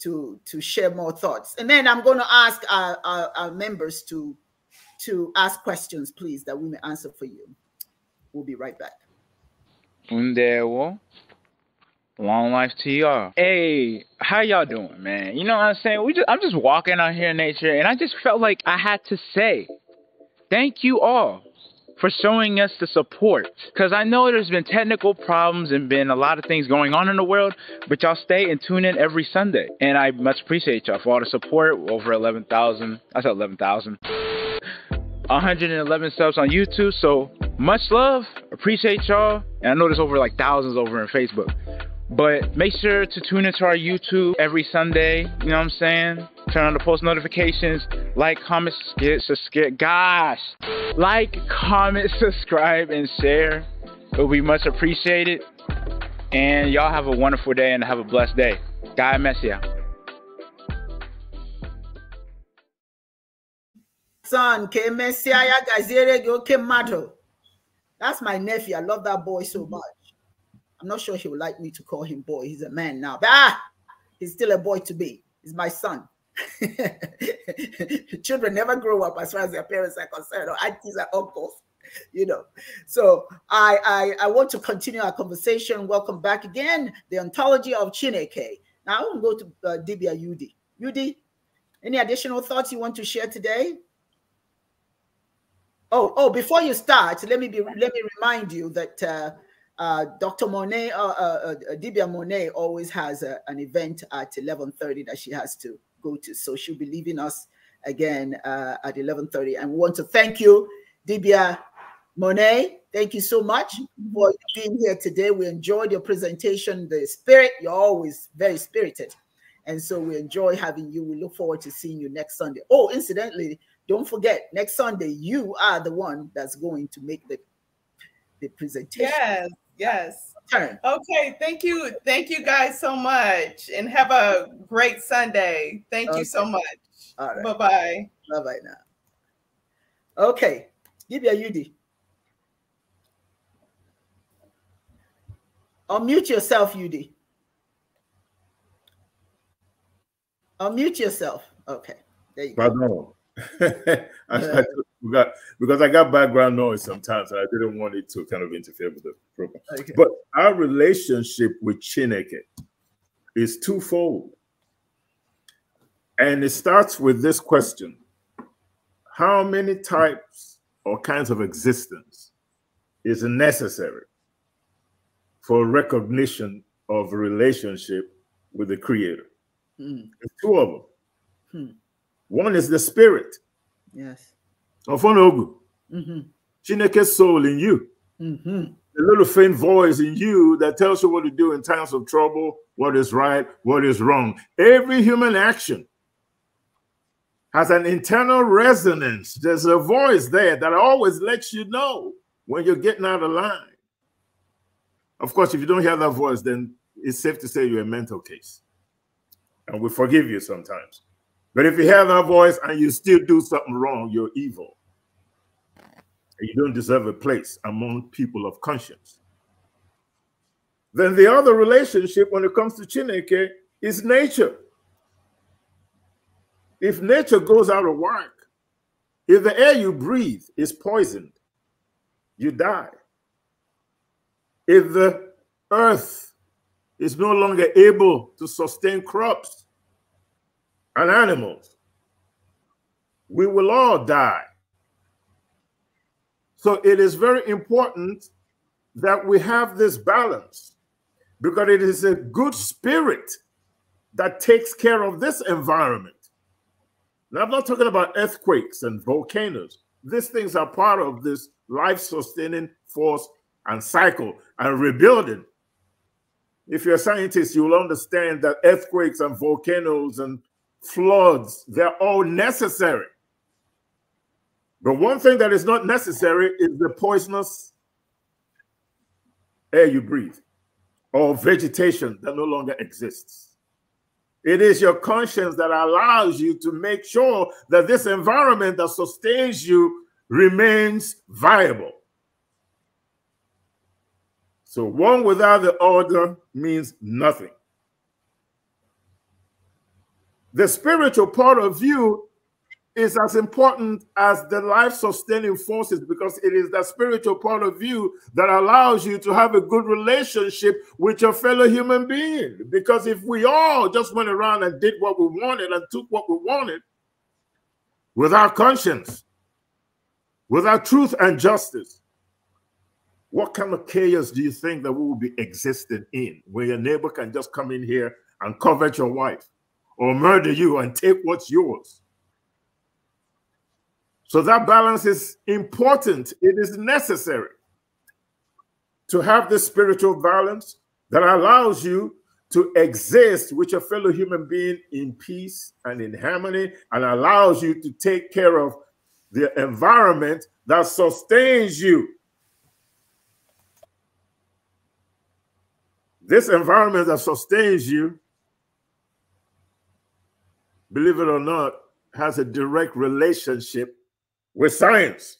S1: to to share more thoughts. And then I'm going to ask our, our, our, members to to ask questions, please, that we may answer for you. We'll be right back.
S7: Long life to y'all. Hey, how y'all doing, man? You know what I'm saying? We just I'm just walking out here in nature and I just felt like I had to say thank you all for showing us the support. Because I know there's been technical problems and been a lot of things going on in the world, but y'all stay and tune in every Sunday. And I much appreciate y'all for all the support. Over 11,000. I said 11,000. 111 subs on YouTube. So much love. Appreciate y'all. And I know there's over like thousands over in Facebook. But make sure to tune into our YouTube every Sunday. You know what I'm saying? Turn on the post notifications. Like, comment, subscribe. Gosh. Like, comment, subscribe, and share. It would be much appreciated. And y'all have a wonderful day and have a blessed day. God bless you.
S1: Son, K Messia, That's my nephew. I love that boy so much. I'm not sure he would like me to call him boy. He's a man now, but ah, he's still a boy to be. He's my son. Children never grow up as far as their parents are concerned, or aunties are uncles, you know. So I, I I want to continue our conversation. Welcome back again. The ontology of Chineke. Now I want to go to uh, Dibia Yudi. Yudi, any additional thoughts you want to share today? Oh, oh, before you start, let me be let me remind you that uh, uh, Dr. Monet, uh, uh, uh, Dibia Monet always has a, an event at 11.30 that she has to go to. So she'll be leaving us again uh, at 11.30. And we want to thank you, Dibia Monet. Thank you so much for being here today. We enjoyed your presentation, the spirit. You're always very spirited. And so we enjoy having you. We look forward to seeing you next Sunday. Oh, incidentally, don't forget, next Sunday, you are the one that's going to make the, the presentation. Yes.
S5: Yes. Okay. Thank you. Thank you guys so much. And have a great Sunday. Thank okay. you so much. All right. Bye bye. Bye bye now. Okay.
S1: Give a UD. Unmute yourself, UD. Unmute yourself. Okay. There you Pardon.
S2: I, I, we got because I got background noise sometimes, and I didn't want it to kind of interfere with the program. Okay. But our relationship with Chineke is twofold, and it starts with this question: How many types or kinds of existence is necessary for recognition of relationship with the Creator? Mm. There's two of them. Hmm. One is the spirit. Yes Ofonogu. Mm-hmm. Chineke soul in you. The mm-hmm. little faint voice in you that tells you what to do in times of trouble, what is right, what is wrong. Every human action has an internal resonance. There's a voice there that always lets you know when you're getting out of line. Of course, if you don't hear that voice, then it's safe to say you're a mental case. And we forgive you sometimes. But if you hear that voice and you still do something wrong, you're evil. And you don't deserve a place among people of conscience. Then the other relationship when it comes to Chineke is nature. If nature goes out of work, if the air you breathe is poisoned, you die. If the earth is no longer able to sustain crops, and animals. We will all die. So it is very important that we have this balance because it is a good spirit that takes care of this environment. Now, I'm not talking about earthquakes and volcanoes. These things are part of this life sustaining force and cycle and rebuilding. If you're a scientist, you'll understand that earthquakes and volcanoes and floods, they're all necessary. But one thing that is not necessary is the poisonous air you breathe or vegetation that no longer exists. It is your conscience that allows you to make sure that this environment that sustains you remains viable. So, one without the other means nothing. The spiritual part of you is as important as the life sustaining forces because it is that spiritual part of you that allows you to have a good relationship with your fellow human being. Because if we all just went around and did what we wanted and took what we wanted without conscience, without truth and justice, what kind of chaos do you think that we will be existing in where your neighbor can just come in here and covet your wife? or murder you and take what's yours. So that balance is important. It is necessary to have this spiritual balance that allows you to exist with your fellow human being in peace and in harmony and allows you to take care of the environment that sustains you. This environment that sustains you believe it or not, has a direct relationship with science.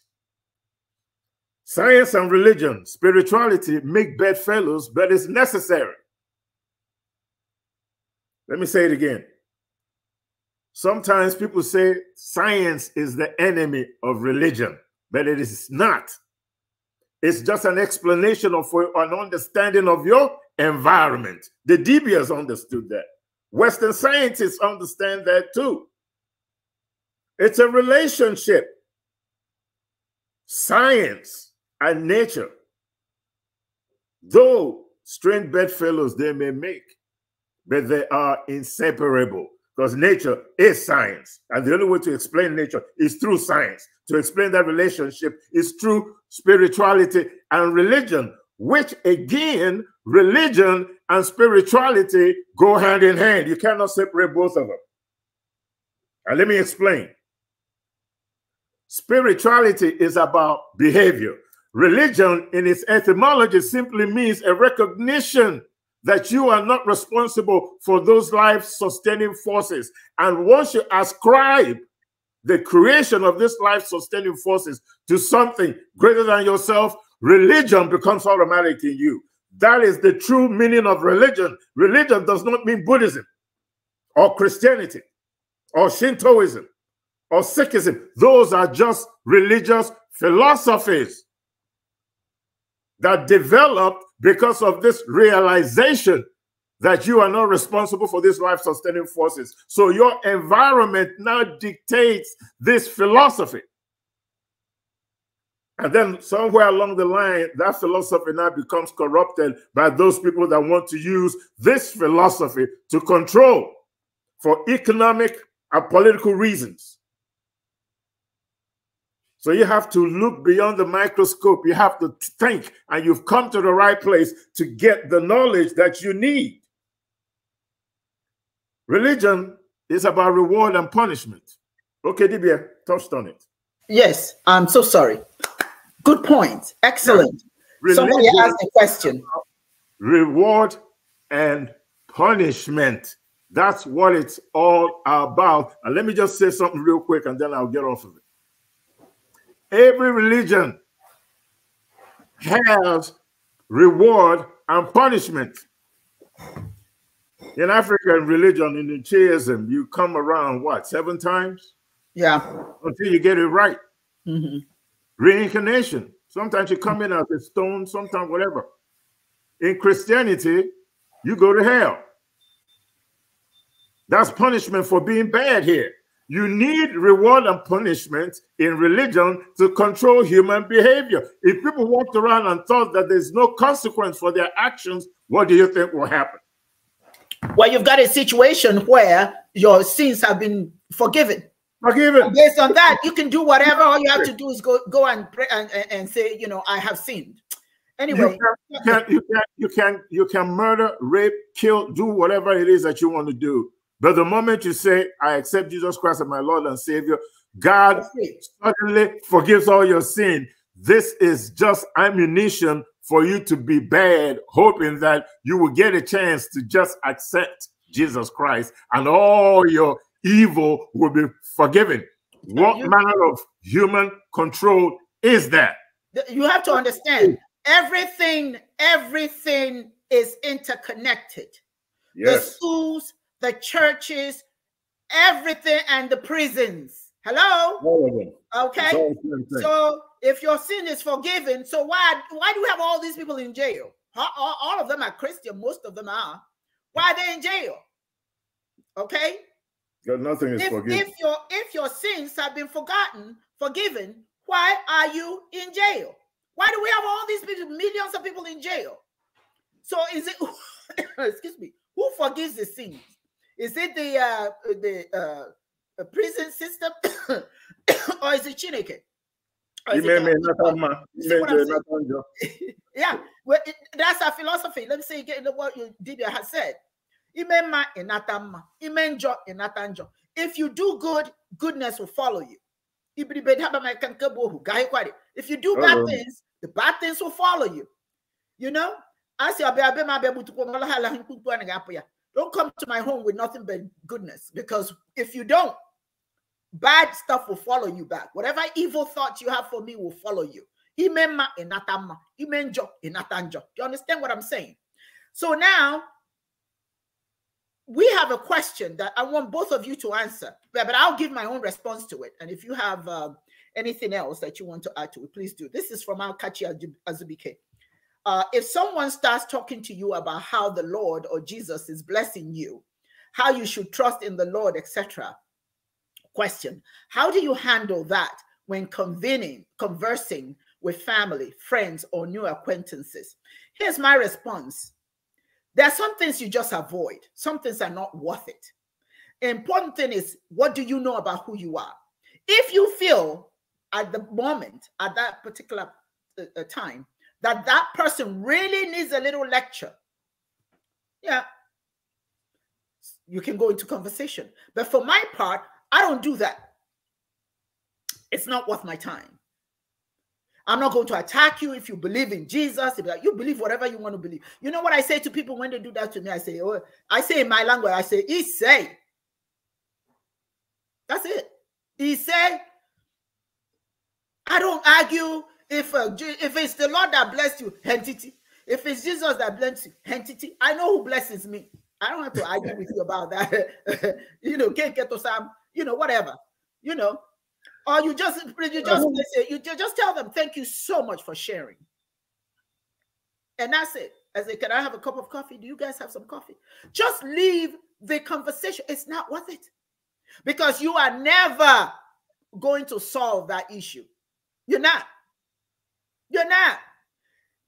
S2: Science and religion, spirituality make bedfellows, but it's necessary. Let me say it again. Sometimes people say science is the enemy of religion, but it is not. It's just an explanation of an understanding of your environment. The DBS understood that. Western scientists understand that too. It's a relationship. Science and nature, though strange bedfellows they may make, but they are inseparable because nature is science. And the only way to explain nature is through science. To explain that relationship is through spirituality and religion, which again religion and spirituality go hand in hand. You cannot separate both of them. And let me explain. Spirituality is about behavior. Religion, in its etymology, simply means a recognition that you are not responsible for those life sustaining forces. And once you ascribe the creation of this life sustaining forces to something greater than yourself, religion becomes automatic in you. That is the true meaning of religion. Religion does not mean Buddhism or Christianity or Shintoism or Sikhism. Those are just religious philosophies that developed because of this realization that you are not responsible for these life sustaining forces. So your environment now dictates this philosophy. And then somewhere along the line, that philosophy now becomes corrupted by those people that want to use this philosophy to control for economic and political reasons. So you have to look beyond the microscope. You have to think, and you've come to the right place to get the knowledge that you need. Religion is about reward and punishment. Okay, Dibia touched on it.
S1: Yes, I'm so sorry. Good point.
S2: Excellent. Somebody asked a question. Reward and punishment. That's what it's all about. And let me just say something real quick and then I'll get off of it. Every religion has reward and punishment. In African religion, in Judaism, you come around what seven times? Yeah, until you get it right. Mm -hmm. Reincarnation. Sometimes you come in as a stone, sometimes whatever. In Christianity, you go to hell. That's punishment for being bad here. You need reward and punishment in religion to control human behavior. If people walked around and thought that there's no consequence for their actions, what do
S1: you think will happen? Well, you've got a situation where your sins have been forgiven. Forgiven. Based on that, you can do whatever. All you have to do is go go and pray and, and say, you know, I have sinned. Anyway, you can, you can
S2: you can you can murder, rape, kill, do whatever it is that you want to do. But the moment you say, I accept Jesus Christ as my Lord and Savior, God suddenly forgives all your sin. This is just ammunition for you to be bad, hoping that you will get a chance to just accept Jesus Christ and all your evil will be forgiven. What you, manner of human control is that?
S1: You have to understand everything, everything is interconnected. Yes. The schools, the churches, everything, and the prisons. Hello? Okay. So if your sin is forgiven, so why why do we have all these people in jail? All, all of them are Christian, most of them are. Why are they in jail? Okay.
S2: God, nothing is if, forgiven. If
S1: your if your sins have been forgotten, forgiven, why are you in jail? Why do we have all these people, millions of people in jail? So is it excuse me? Who forgives the sins? Is it the uh, the uh, prison system, or is it Chineke? yeah, well, it, that's our philosophy. Let me say again what you Dibia has said if you do good goodness will follow you if you do bad oh. things the bad things will follow you you know mala don't come to my home with nothing but goodness because if you don't bad stuff will follow you back. Whatever evil thoughts you have for me will follow you. Do you understand what I'm saying? So now we have a question that I want both of you to answer, but I'll give my own response to it. And if you have um, anything else that you want to add to it, please do. This is from Alkachi Azubike. Uh, if someone starts talking to you about how the Lord or Jesus is blessing you, how you should trust in the Lord, etc., question: How do you handle that when convening, conversing with family, friends, or new acquaintances? Here's my response there are some things you just avoid. Some things are not worth it. important thing is, what do you know about who you are? If you feel at the moment, at that particular uh, uh time, that that person really needs a little lecture, yeah, you can go into conversation. But for my part, I don't do that. It's not worth my time. I'm not going to attack you if you believe in Jesus. You believe whatever you want to believe. You know what I say to people when they do that to me? I say, oh, I say in my language, I say, he say. That's it. He say. I don't argue if uh, if it's the Lord that blessed you, entity. If it's Jesus that blessed you, entity. I know who blesses me. I don't have to argue with you about that. you know, can't get to some, you know, whatever. You know, or you just you just listen, you just tell them thank you so much for sharing. And that's it. I say, can I have a cup of coffee? Do you guys have some coffee? Just leave the conversation. It's not worth it. Because you are never going to solve that issue. You're not. You're not.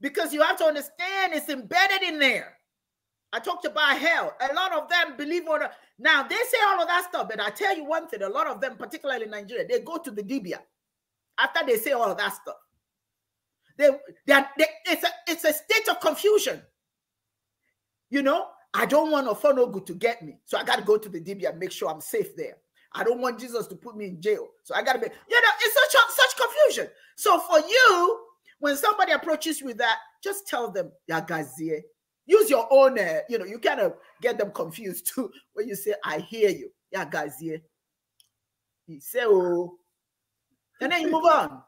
S1: Because you have to understand it's embedded in there. I talked about hell. A lot of them believe on. Now they say all of that stuff, but I tell you one thing: a lot of them, particularly in Nigeria, they go to the Dibia after they say all of that stuff. They, they, they it's a it's a state of confusion. You know, I don't want good to get me, so I got to go to the Dibia and make sure I'm safe there. I don't want Jesus to put me in jail, so I got to be. You know, it's such such confusion. So for you, when somebody approaches you with that, just tell them, "Yagazie, use your own uh, you know you kind of get them confused too when you say i hear you yeah guys yeah you say oh and then you move on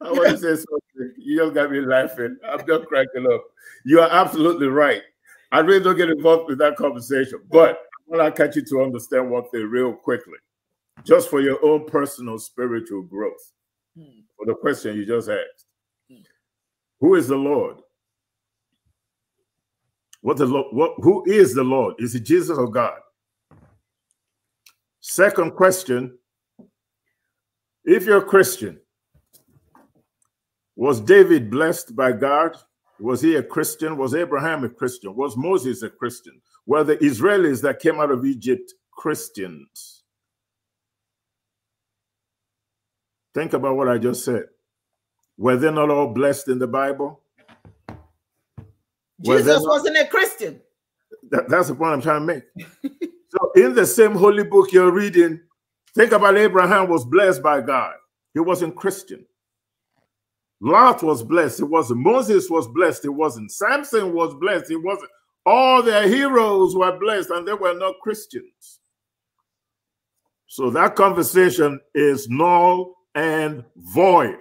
S2: i want to say something you just got me laughing i'm just cracking up you are absolutely right i really don't get involved with that conversation but i want to catch you to understand one thing real quickly just for your own personal spiritual growth hmm. for the question you just asked hmm. who is the lord what the Lord, what, who is the Lord? Is it Jesus or God? Second question If you're a Christian, was David blessed by God? Was he a Christian? Was Abraham a Christian? Was Moses a Christian? Were the Israelis that came out of Egypt Christians? Think about what I just said. Were they not all blessed in the Bible? Jesus well,
S1: wasn't a Christian.
S2: That, that's the point I'm trying to make. so, in the same holy book you're reading, think about Abraham was blessed by God. He wasn't Christian. Lot was blessed. It wasn't. Moses was blessed. It wasn't. Samson was blessed. It wasn't. All their heroes were blessed, and they were not Christians. So that conversation is null and void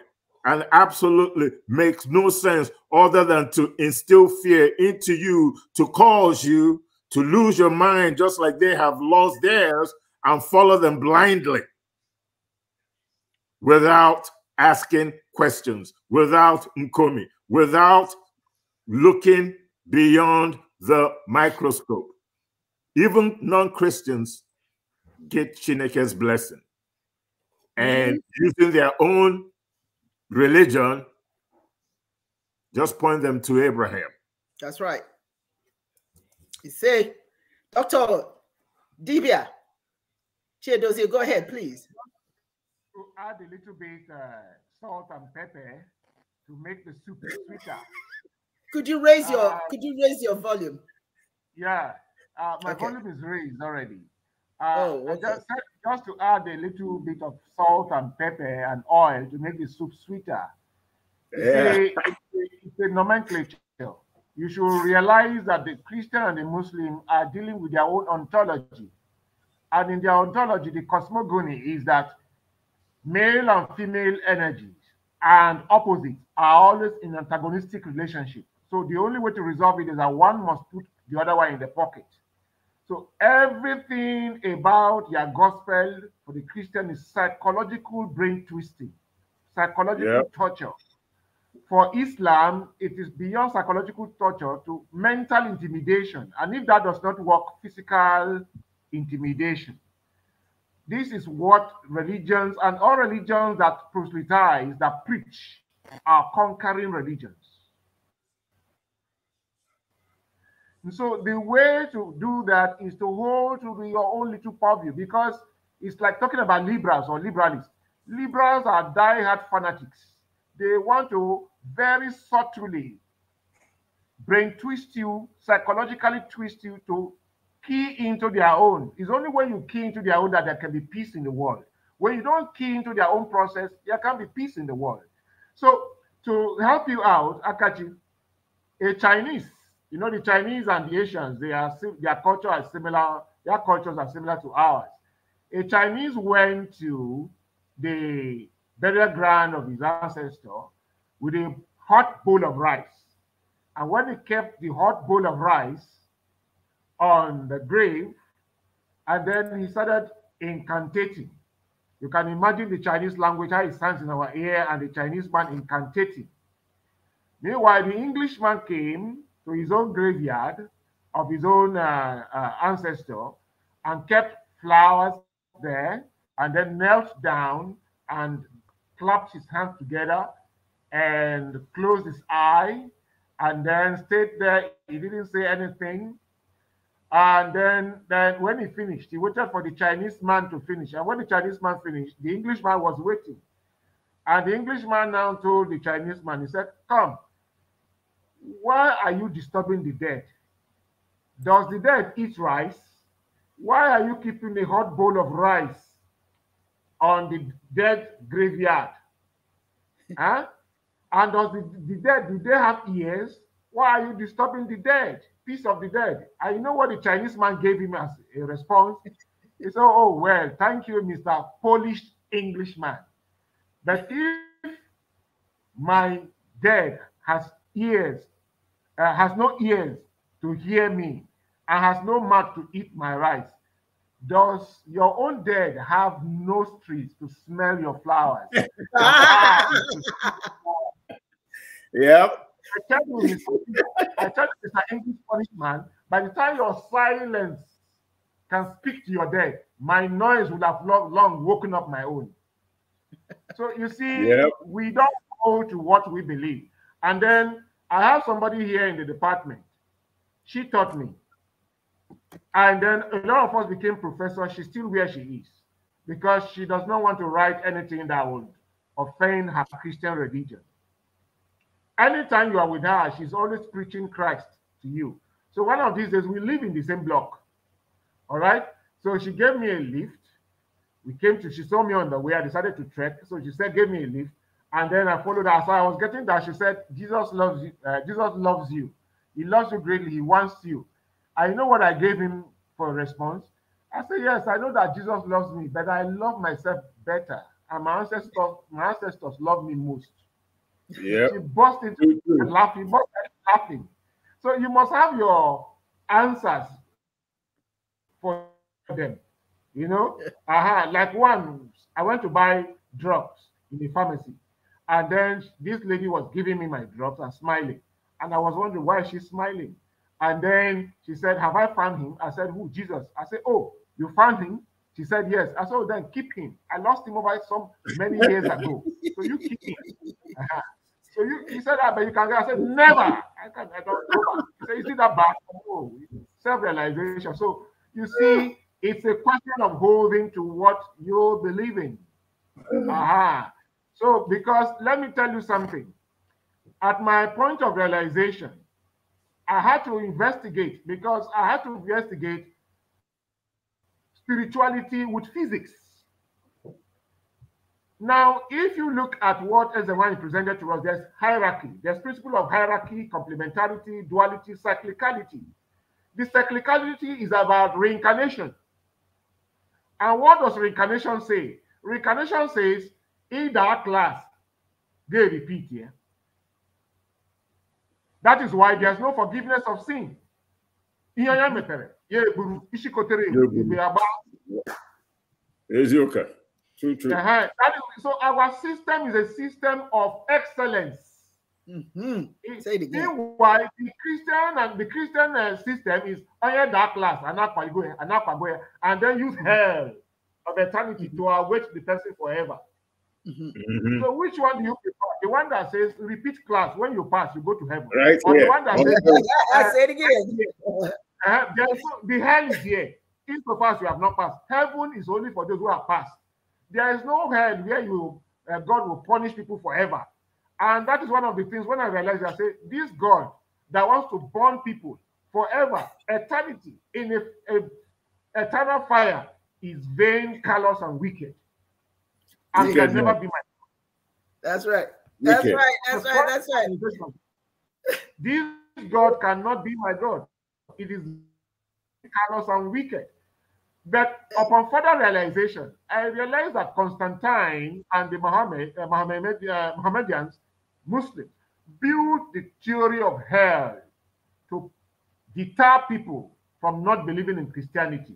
S2: and absolutely makes no sense other than to instill fear into you to cause you to lose your mind just like they have lost theirs and follow them blindly without asking questions, without Nkomi, without looking beyond the microscope. Even non Christians get Chineke's blessing and mm-hmm. using their own religion, just point them to Abraham.
S1: That's right. You say, Dr. Dibia, Chiedozie, go ahead, please.
S3: To add a little bit uh, salt and pepper to make the soup sweeter. could you raise your uh, could you raise your volume? Yeah, uh, my okay. volume is raised already. Uh, oh, okay. I just just to add a little bit of salt and pepper and oil to make the soup sweeter. Yeah. It's, a, it's a nomenclature. You should realize that the Christian and the Muslim are dealing with their own ontology. And in their ontology, the cosmogony is that male and female energies and opposites are always in antagonistic relationship. So the only way to resolve it is that one must put the other one in the pocket. So everything about your gospel for the Christian is psychological brain twisting, psychological yep. torture. For Islam, it is beyond psychological torture to mental intimidation. And if that does not work, physical intimidation. This is what religions and all religions that proselytize, that preach, are conquering religions. so the way to do that is to hold to your own little purview because it's like talking about liberals or liberalists. Liberals are die-hard fanatics. They want to very subtly brain twist you, psychologically twist you to key into their own. It's only when you key into their own that there can be peace in the world. When you don't key into their own process, there can be peace in the world. So to help you out, Akachi, a Chinese you know, the Chinese and the Asians, they are their culture are similar. Their cultures are similar to ours. A Chinese went to the burial ground of his ancestor with a hot bowl of rice. And when he kept the hot bowl of rice on the grave, and then he started incantating. You can imagine the Chinese language, how it sounds in our ear, and the Chinese man incantating. Meanwhile, the Englishman came to his own graveyard of his own uh, uh, ancestor and kept flowers there and then knelt down and clapped his hands together and closed his eye and then stayed there. He didn't say anything. And then, then when he finished, he waited for the Chinese man to finish. And when the Chinese man finished, the Englishman was waiting. And the Englishman now told the Chinese man, he said, Come, why are you disturbing the dead? Does the dead eat rice? Why are you keeping a hot bowl of rice on the dead graveyard? huh? And does the, the dead, do they have ears? Why are you disturbing the dead? Peace of the dead. I know what the Chinese man gave him as a response. He said, oh, oh, well, thank you, Mr. Polish Englishman. But if my dead has ears uh, has no ears to hear me, and has no mouth to eat my rice. Does your own dead have no streets to smell your flowers? yep. I tell you, I tell you, an English punishment, by the time your silence can speak to your dead, my noise would have long, long woken up my own. So you see, yep. we don't go to what we believe. And then I have somebody here in the department. She taught me. And then a lot of us became professors. She's still where she is because she does not want to write anything that would offend her Christian religion. Anytime you are with her, she's always preaching Christ to you. So one of these days, we live in the same block. All right. So she gave me a lift. We came to, she saw me on the way. I decided to trek. So she said, gave me a lift. And then I followed her. So I was getting that. She said, Jesus loves you. Uh, Jesus loves you. He loves you greatly. He wants you. I know what I gave him for a response. I said, Yes, I know that Jesus loves me, but I love myself better. And my ancestors, my ancestors love me most. Yeah. She burst into laughing, burst laughing. So you must have your answers for them. You know, uh -huh. like one, I went to buy drugs in the pharmacy. And then this lady was giving me my drops and smiling. And I was wondering why she's smiling. And then she said, Have I found him? I said, Who? Jesus. I said, Oh, you found him? She said, Yes. I said, oh, Then keep him. I lost him over some many years ago. So you keep him. Uh-huh. So you, he said, ah, But you can go. I said, Never. I, can, I don't know. So you see that back? Oh, self realization. So you see, it's a question of holding to what you believe in. Mm. Uh-huh. So, because let me tell you something. At my point of realization, I had to investigate because I had to investigate spirituality with physics. Now, if you look at what is the one presented to us, there's hierarchy, there's principle of hierarchy, complementarity, duality, cyclicality. The cyclicality is about reincarnation. And what does reincarnation say? Reincarnation says in that class, they repeat here. That is why there's no forgiveness of sin. Ihe ya True, true. is, so our system is a system of excellence. Mm-hmm. Say it again. Why the Christian and the Christian uh, system is higher that class and and then use hell of eternity mm-hmm. to await the person forever. Mm-hmm. mm-hmm. So which one do you prefer? The one that says repeat class when you pass, you go to heaven. Right. Or the one that says I said again. Uh, uh-huh. there's, the hell is here. If you pass, you have not passed. Heaven is only for those who have passed. There is no hell where you uh, God will punish people forever. And that is one of the things when I realized I say this God that wants to burn people forever, eternity, in a, a eternal fire is vain, callous, and wicked. And never That's right. That's right. That's right. That's right. This God cannot be my God. It is callous and wicked. But upon further realization, I realized that Constantine and the Muhammad, uh, Muhammad, uh, Muslims, built the theory of hell to deter people from not believing in Christianity.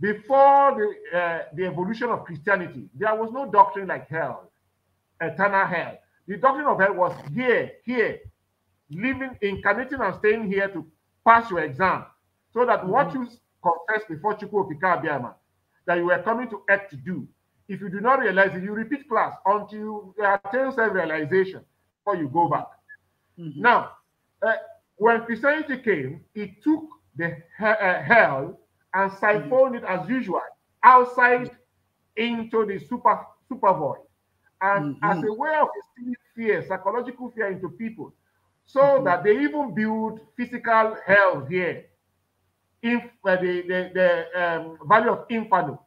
S3: Before the, uh, the evolution of Christianity, there was no doctrine like hell, eternal hell. The doctrine of hell was here, here, living, incarnating, and staying here to pass your exam, so that mm -hmm. what mm-hmm. you confess before Chukwu Abiyama, that you were coming to act to do, if you do not realize it, you repeat class until you attain self-realization before you go back. Mm -hmm. Now, uh, when Christianity came, it took the he uh, hell and siphoned it as usual outside into the super super void. And mm-hmm. as a way of instilling fear, psychological fear into people, so mm-hmm. that they even build physical hell here. If uh, the the, the um, of Inferno,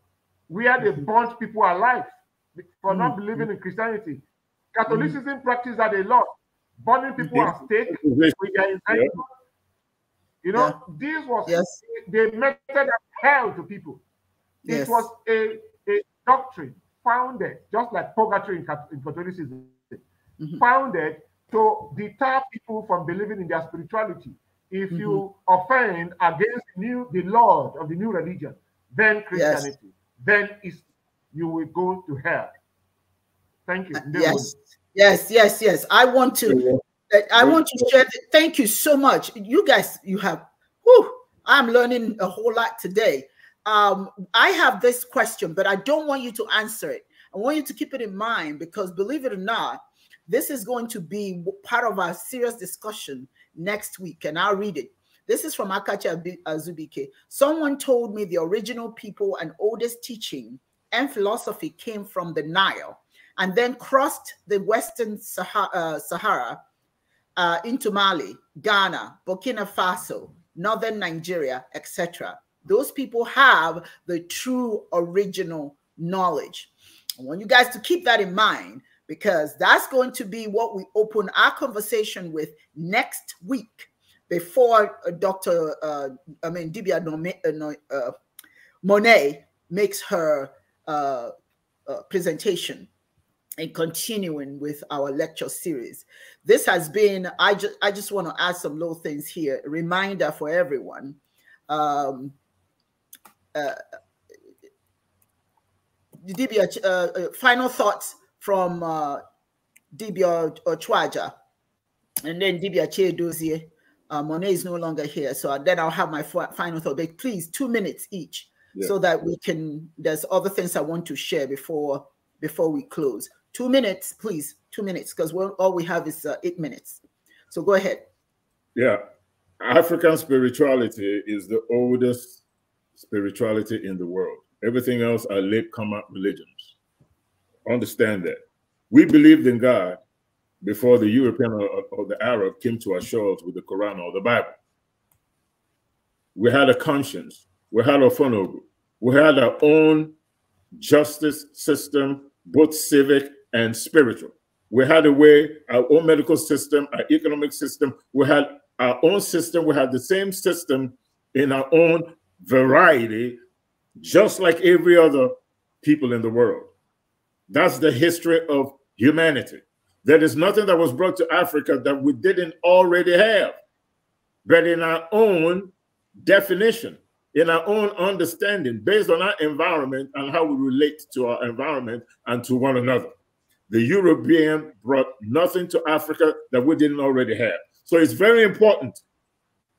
S3: where they mm-hmm. burnt people alive for not believing in Christianity, Catholicism mm practiced that a lot, burning people at stake with their Yeah you know, yeah. this was yes. the method of hell to people. It was a, a doctrine founded, just like purgatory in, in Catholicism, mm-hmm. founded to deter people from believing in their spirituality. If mm-hmm. you offend against new the Lord of the new religion, then Christianity, yes. then is you will go to hell. Thank you. Uh, yes. Yes, yes,
S1: yes. I want to I want to share. thank you so much. You guys, you have. Whew, I'm learning a whole lot today. Um, I have this question, but I don't want you to answer it. I want you to keep it in mind because, believe it or not, this is going to be part of our serious discussion next week, and I'll read it. This is from Akacha Azubike. Someone told me the original people and oldest teaching and philosophy came from the Nile and then crossed the Western Sahara, uh, Sahara uh, into Mali, Ghana, Burkina Faso, Northern Nigeria, etc. Those people have the true original knowledge. I want you guys to keep that in mind because that's going to be what we open our conversation with next week before uh, Dr. Uh, I mean, Dibia uh, uh, Monet makes her uh, uh presentation and continuing with our lecture series. This has been, I, just, I just want to add some little things here, A reminder for everyone. Um, uh, DB, uh, uh, final thoughts from uh, Dibia Ochwaja and then Dibia Chedozie. Uh, um, Monet is no longer here, so then I'll have my final thought. But please, two minutes each, yeah. so that we can. There's other things I want to share before before we close. Two minutes, please. Two minutes, because all we have is uh, eight minutes. So go ahead.
S2: Yeah. African spirituality is the oldest spirituality in the world. Everything else are late common religions. Understand that. We believed in God before the European or, or the Arab came to our shores with the Quran or the Bible. We had a conscience. We had a funnel. We had our own justice system, both civic and spiritual. We had a way, our own medical system, our economic system. We had our own system. We had the same system in our own variety, just like every other people in the world. That's the history of humanity. There is nothing that was brought to Africa that we didn't already have, but in our own definition, in our own understanding, based on our environment and how we relate to our environment and to one another. The European brought nothing to Africa that we didn't already have. So it's very important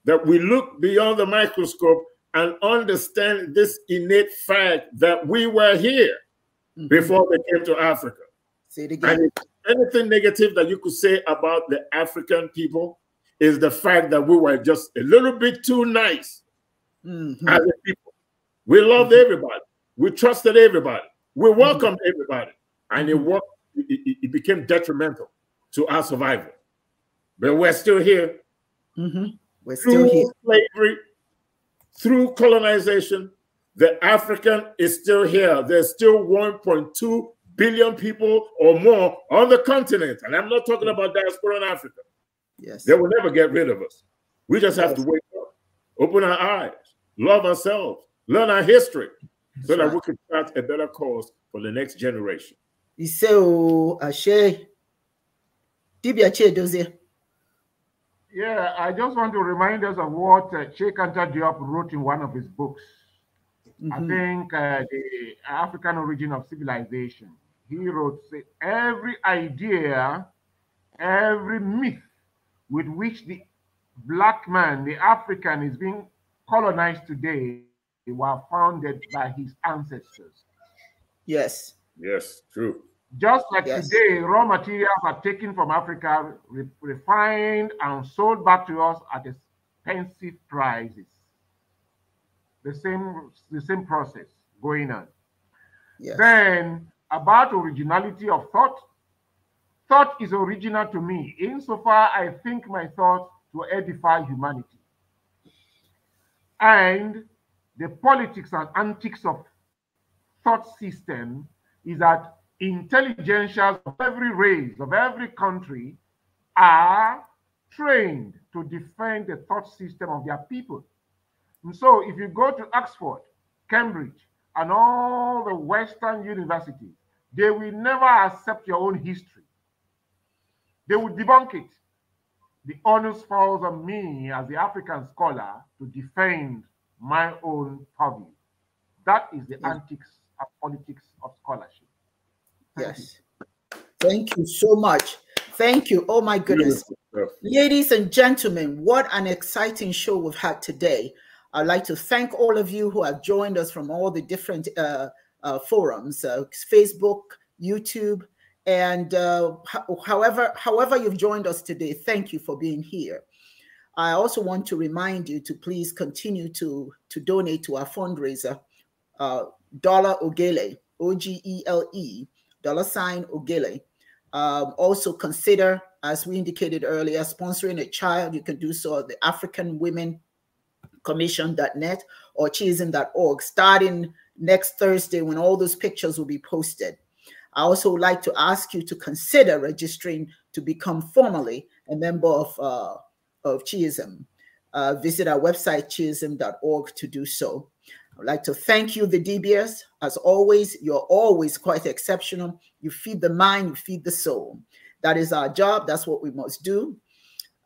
S2: that we look beyond the microscope and understand this innate fact that we were here mm -hmm. before they came to Africa. Say it again. anything negative that you could say about the African people is the fact that we were just a little bit too nice mm -hmm. as a people. We loved mm -hmm. everybody. We trusted everybody. We mm-hmm. welcomed everybody. And it mm-hmm. worked it, it became detrimental to our survival. But we're still here. Mm-hmm. We're still through here. slavery, through colonization, the African is still here. There's still 1.2 billion people or more on the continent. And I'm not talking about diaspora in Africa. Yes. They will never get rid of us. We just have yes. to wake up, open our eyes, love ourselves, learn our history, That's so that right. we can start a better
S1: cause for
S3: the next generation
S1: ise o ashe dibia chedozie
S3: yeah i just want to remind us of what uh, chekanta diop wrote in one of his books
S1: mm -hmm. i mm-hmm. think
S3: uh, the african origin of civilization he wrote say, every idea every myth with which the black man the african is being colonized today were founded by his ancestors
S4: yes Yes, true.
S3: Just like yes. today, raw materials are taken from Africa, re refined, and sold back to us at expensive prices. The same, the same process going on. Yes. Then, about originality of thought, thought is original to me, insofar I think my thought to edify humanity. And the politics and antics of thought system is that intelligentsias of every race, of every country, are trained to defend the thought system of their people. And so if you go to Oxford, Cambridge, and all the Western universities, they will never accept your own history. They will debunk it. The onus falls on me as the African scholar to defend my own purview. That is the yes. antics politics of scholarship.
S1: Thank yes. You. Thank you so much. Thank you. Oh my goodness. Ladies and gentlemen, what an exciting show we've had today. I'd like to thank all of you who have joined us from all the different uh, uh, forums, uh, Facebook, YouTube, and uh, however, however you've joined us today, thank you for being here. I also want to remind you to please continue to, to donate to our fundraiser uh, dollar Ogele, O G E L E, dollar sign Ogele. Um, also consider, as we indicated earlier, sponsoring a child. You can do so at the African Women Commission.net or org. starting next Thursday when all those pictures will be posted. I also would like to ask you to consider registering to become formally a member of, uh, of Chiism. Uh, visit our website, org to do so. I'd like to thank you, the DBS. As always, you're always quite exceptional. You feed the mind, you feed the soul. That is our job. That's what we must do.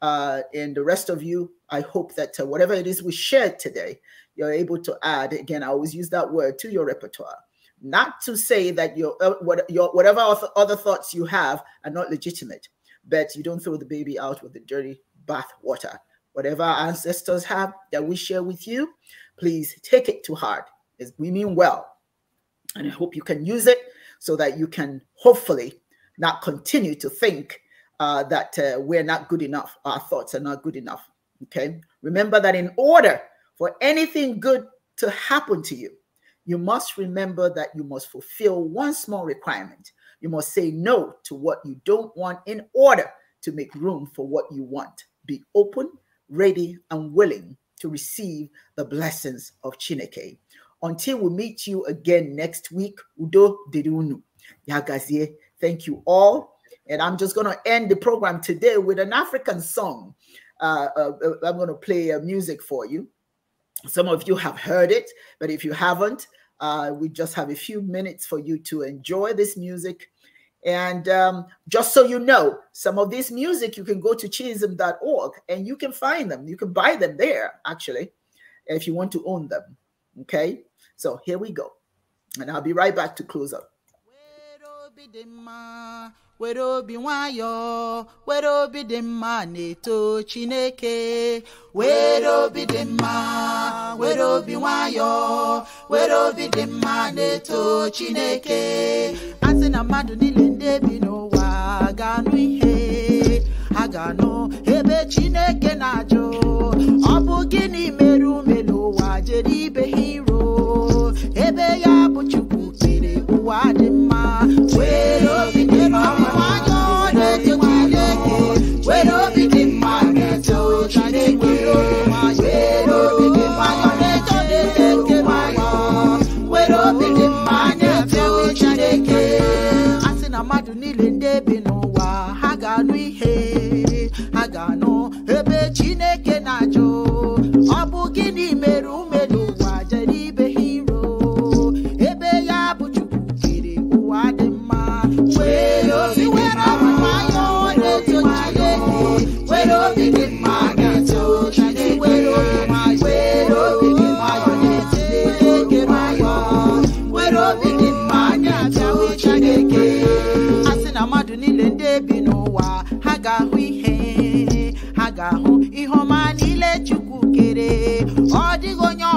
S1: Uh, and the rest of you, I hope that uh, whatever it is we shared today, you're able to add. Again, I always use that word to your repertoire. Not to say that your, uh, what, your whatever other thoughts you have are not legitimate, but you don't throw the baby out with the dirty bath water. Whatever our ancestors have that we share with you, please take it to heart. We mean well. And I hope you can use it so that you can hopefully not continue to think uh, that uh, we're not good enough, our thoughts are not good enough. Okay. Remember that in order for anything good to happen to you, you must remember that you must fulfill one small requirement. You must say no to what you don't want in order to make room for what you want. Be open, ready, and willing to receive the blessings of Chineke. Until we meet you again next week, Udo Dirunu. Yagazie, thank you all. And I'm just going to end the program today with an African song. Uh, uh, uh I'm going to play uh, music for you. Some of you have heard it, but if you haven't, uh, we just have a few minutes for you to enjoy this music and um, just so you know, some of this music, you can go to chism.org and you can find them. You can buy them there, actually, if you want to own them. Okay? So here we go. And I'll be right back to close up. were obi were obi dị mma na-eto chineke were obi dị mma were obi were obi dị mma na-eto chineke asị na mmadụ niile debi n'ụwa aganụ ihe aganụ ebe chineke na jo ọ bụ gịnị meru ume wa jere ga-ahụ ihe a ga-ahụ ihe ọma niile Chukwu kere ọ dịghị onye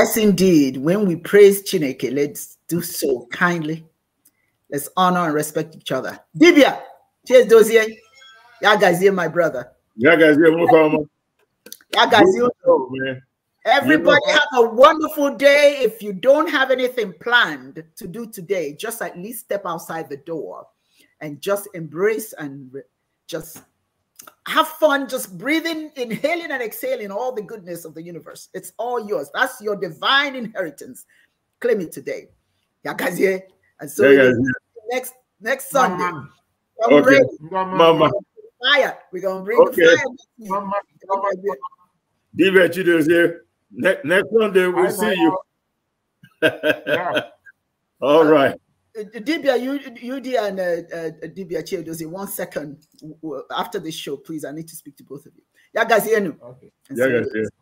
S1: Yes, indeed. When we praise Chineke, let's do so kindly. Let's honor and respect each other. Dibia, cheers, Dozier. Y'all guys here, my brother.
S2: Y'all guys here, welcome. you guys here.
S4: Man.
S1: Everybody have a wonderful day. If you don't have anything planned to do today, just at least step outside the door and just embrace and just have fun just breathing, inhaling, and exhaling all the goodness of the universe. It's all yours. That's your divine inheritance. Claim it today. And so yeah, next next Sunday. Mama. I'm okay. ready. Mama. Mama. Fire. We're gonna bring okay. the fire. Mama. Mama.
S2: next Sunday we'll see you. yeah. All right.
S1: Dibia, you, UD and uh, uh, Dibia Chiedozi, one second after the show, please. I need to speak to both of you. Yeah, guys, you know. Okay.
S4: Yeah, guys, yeah.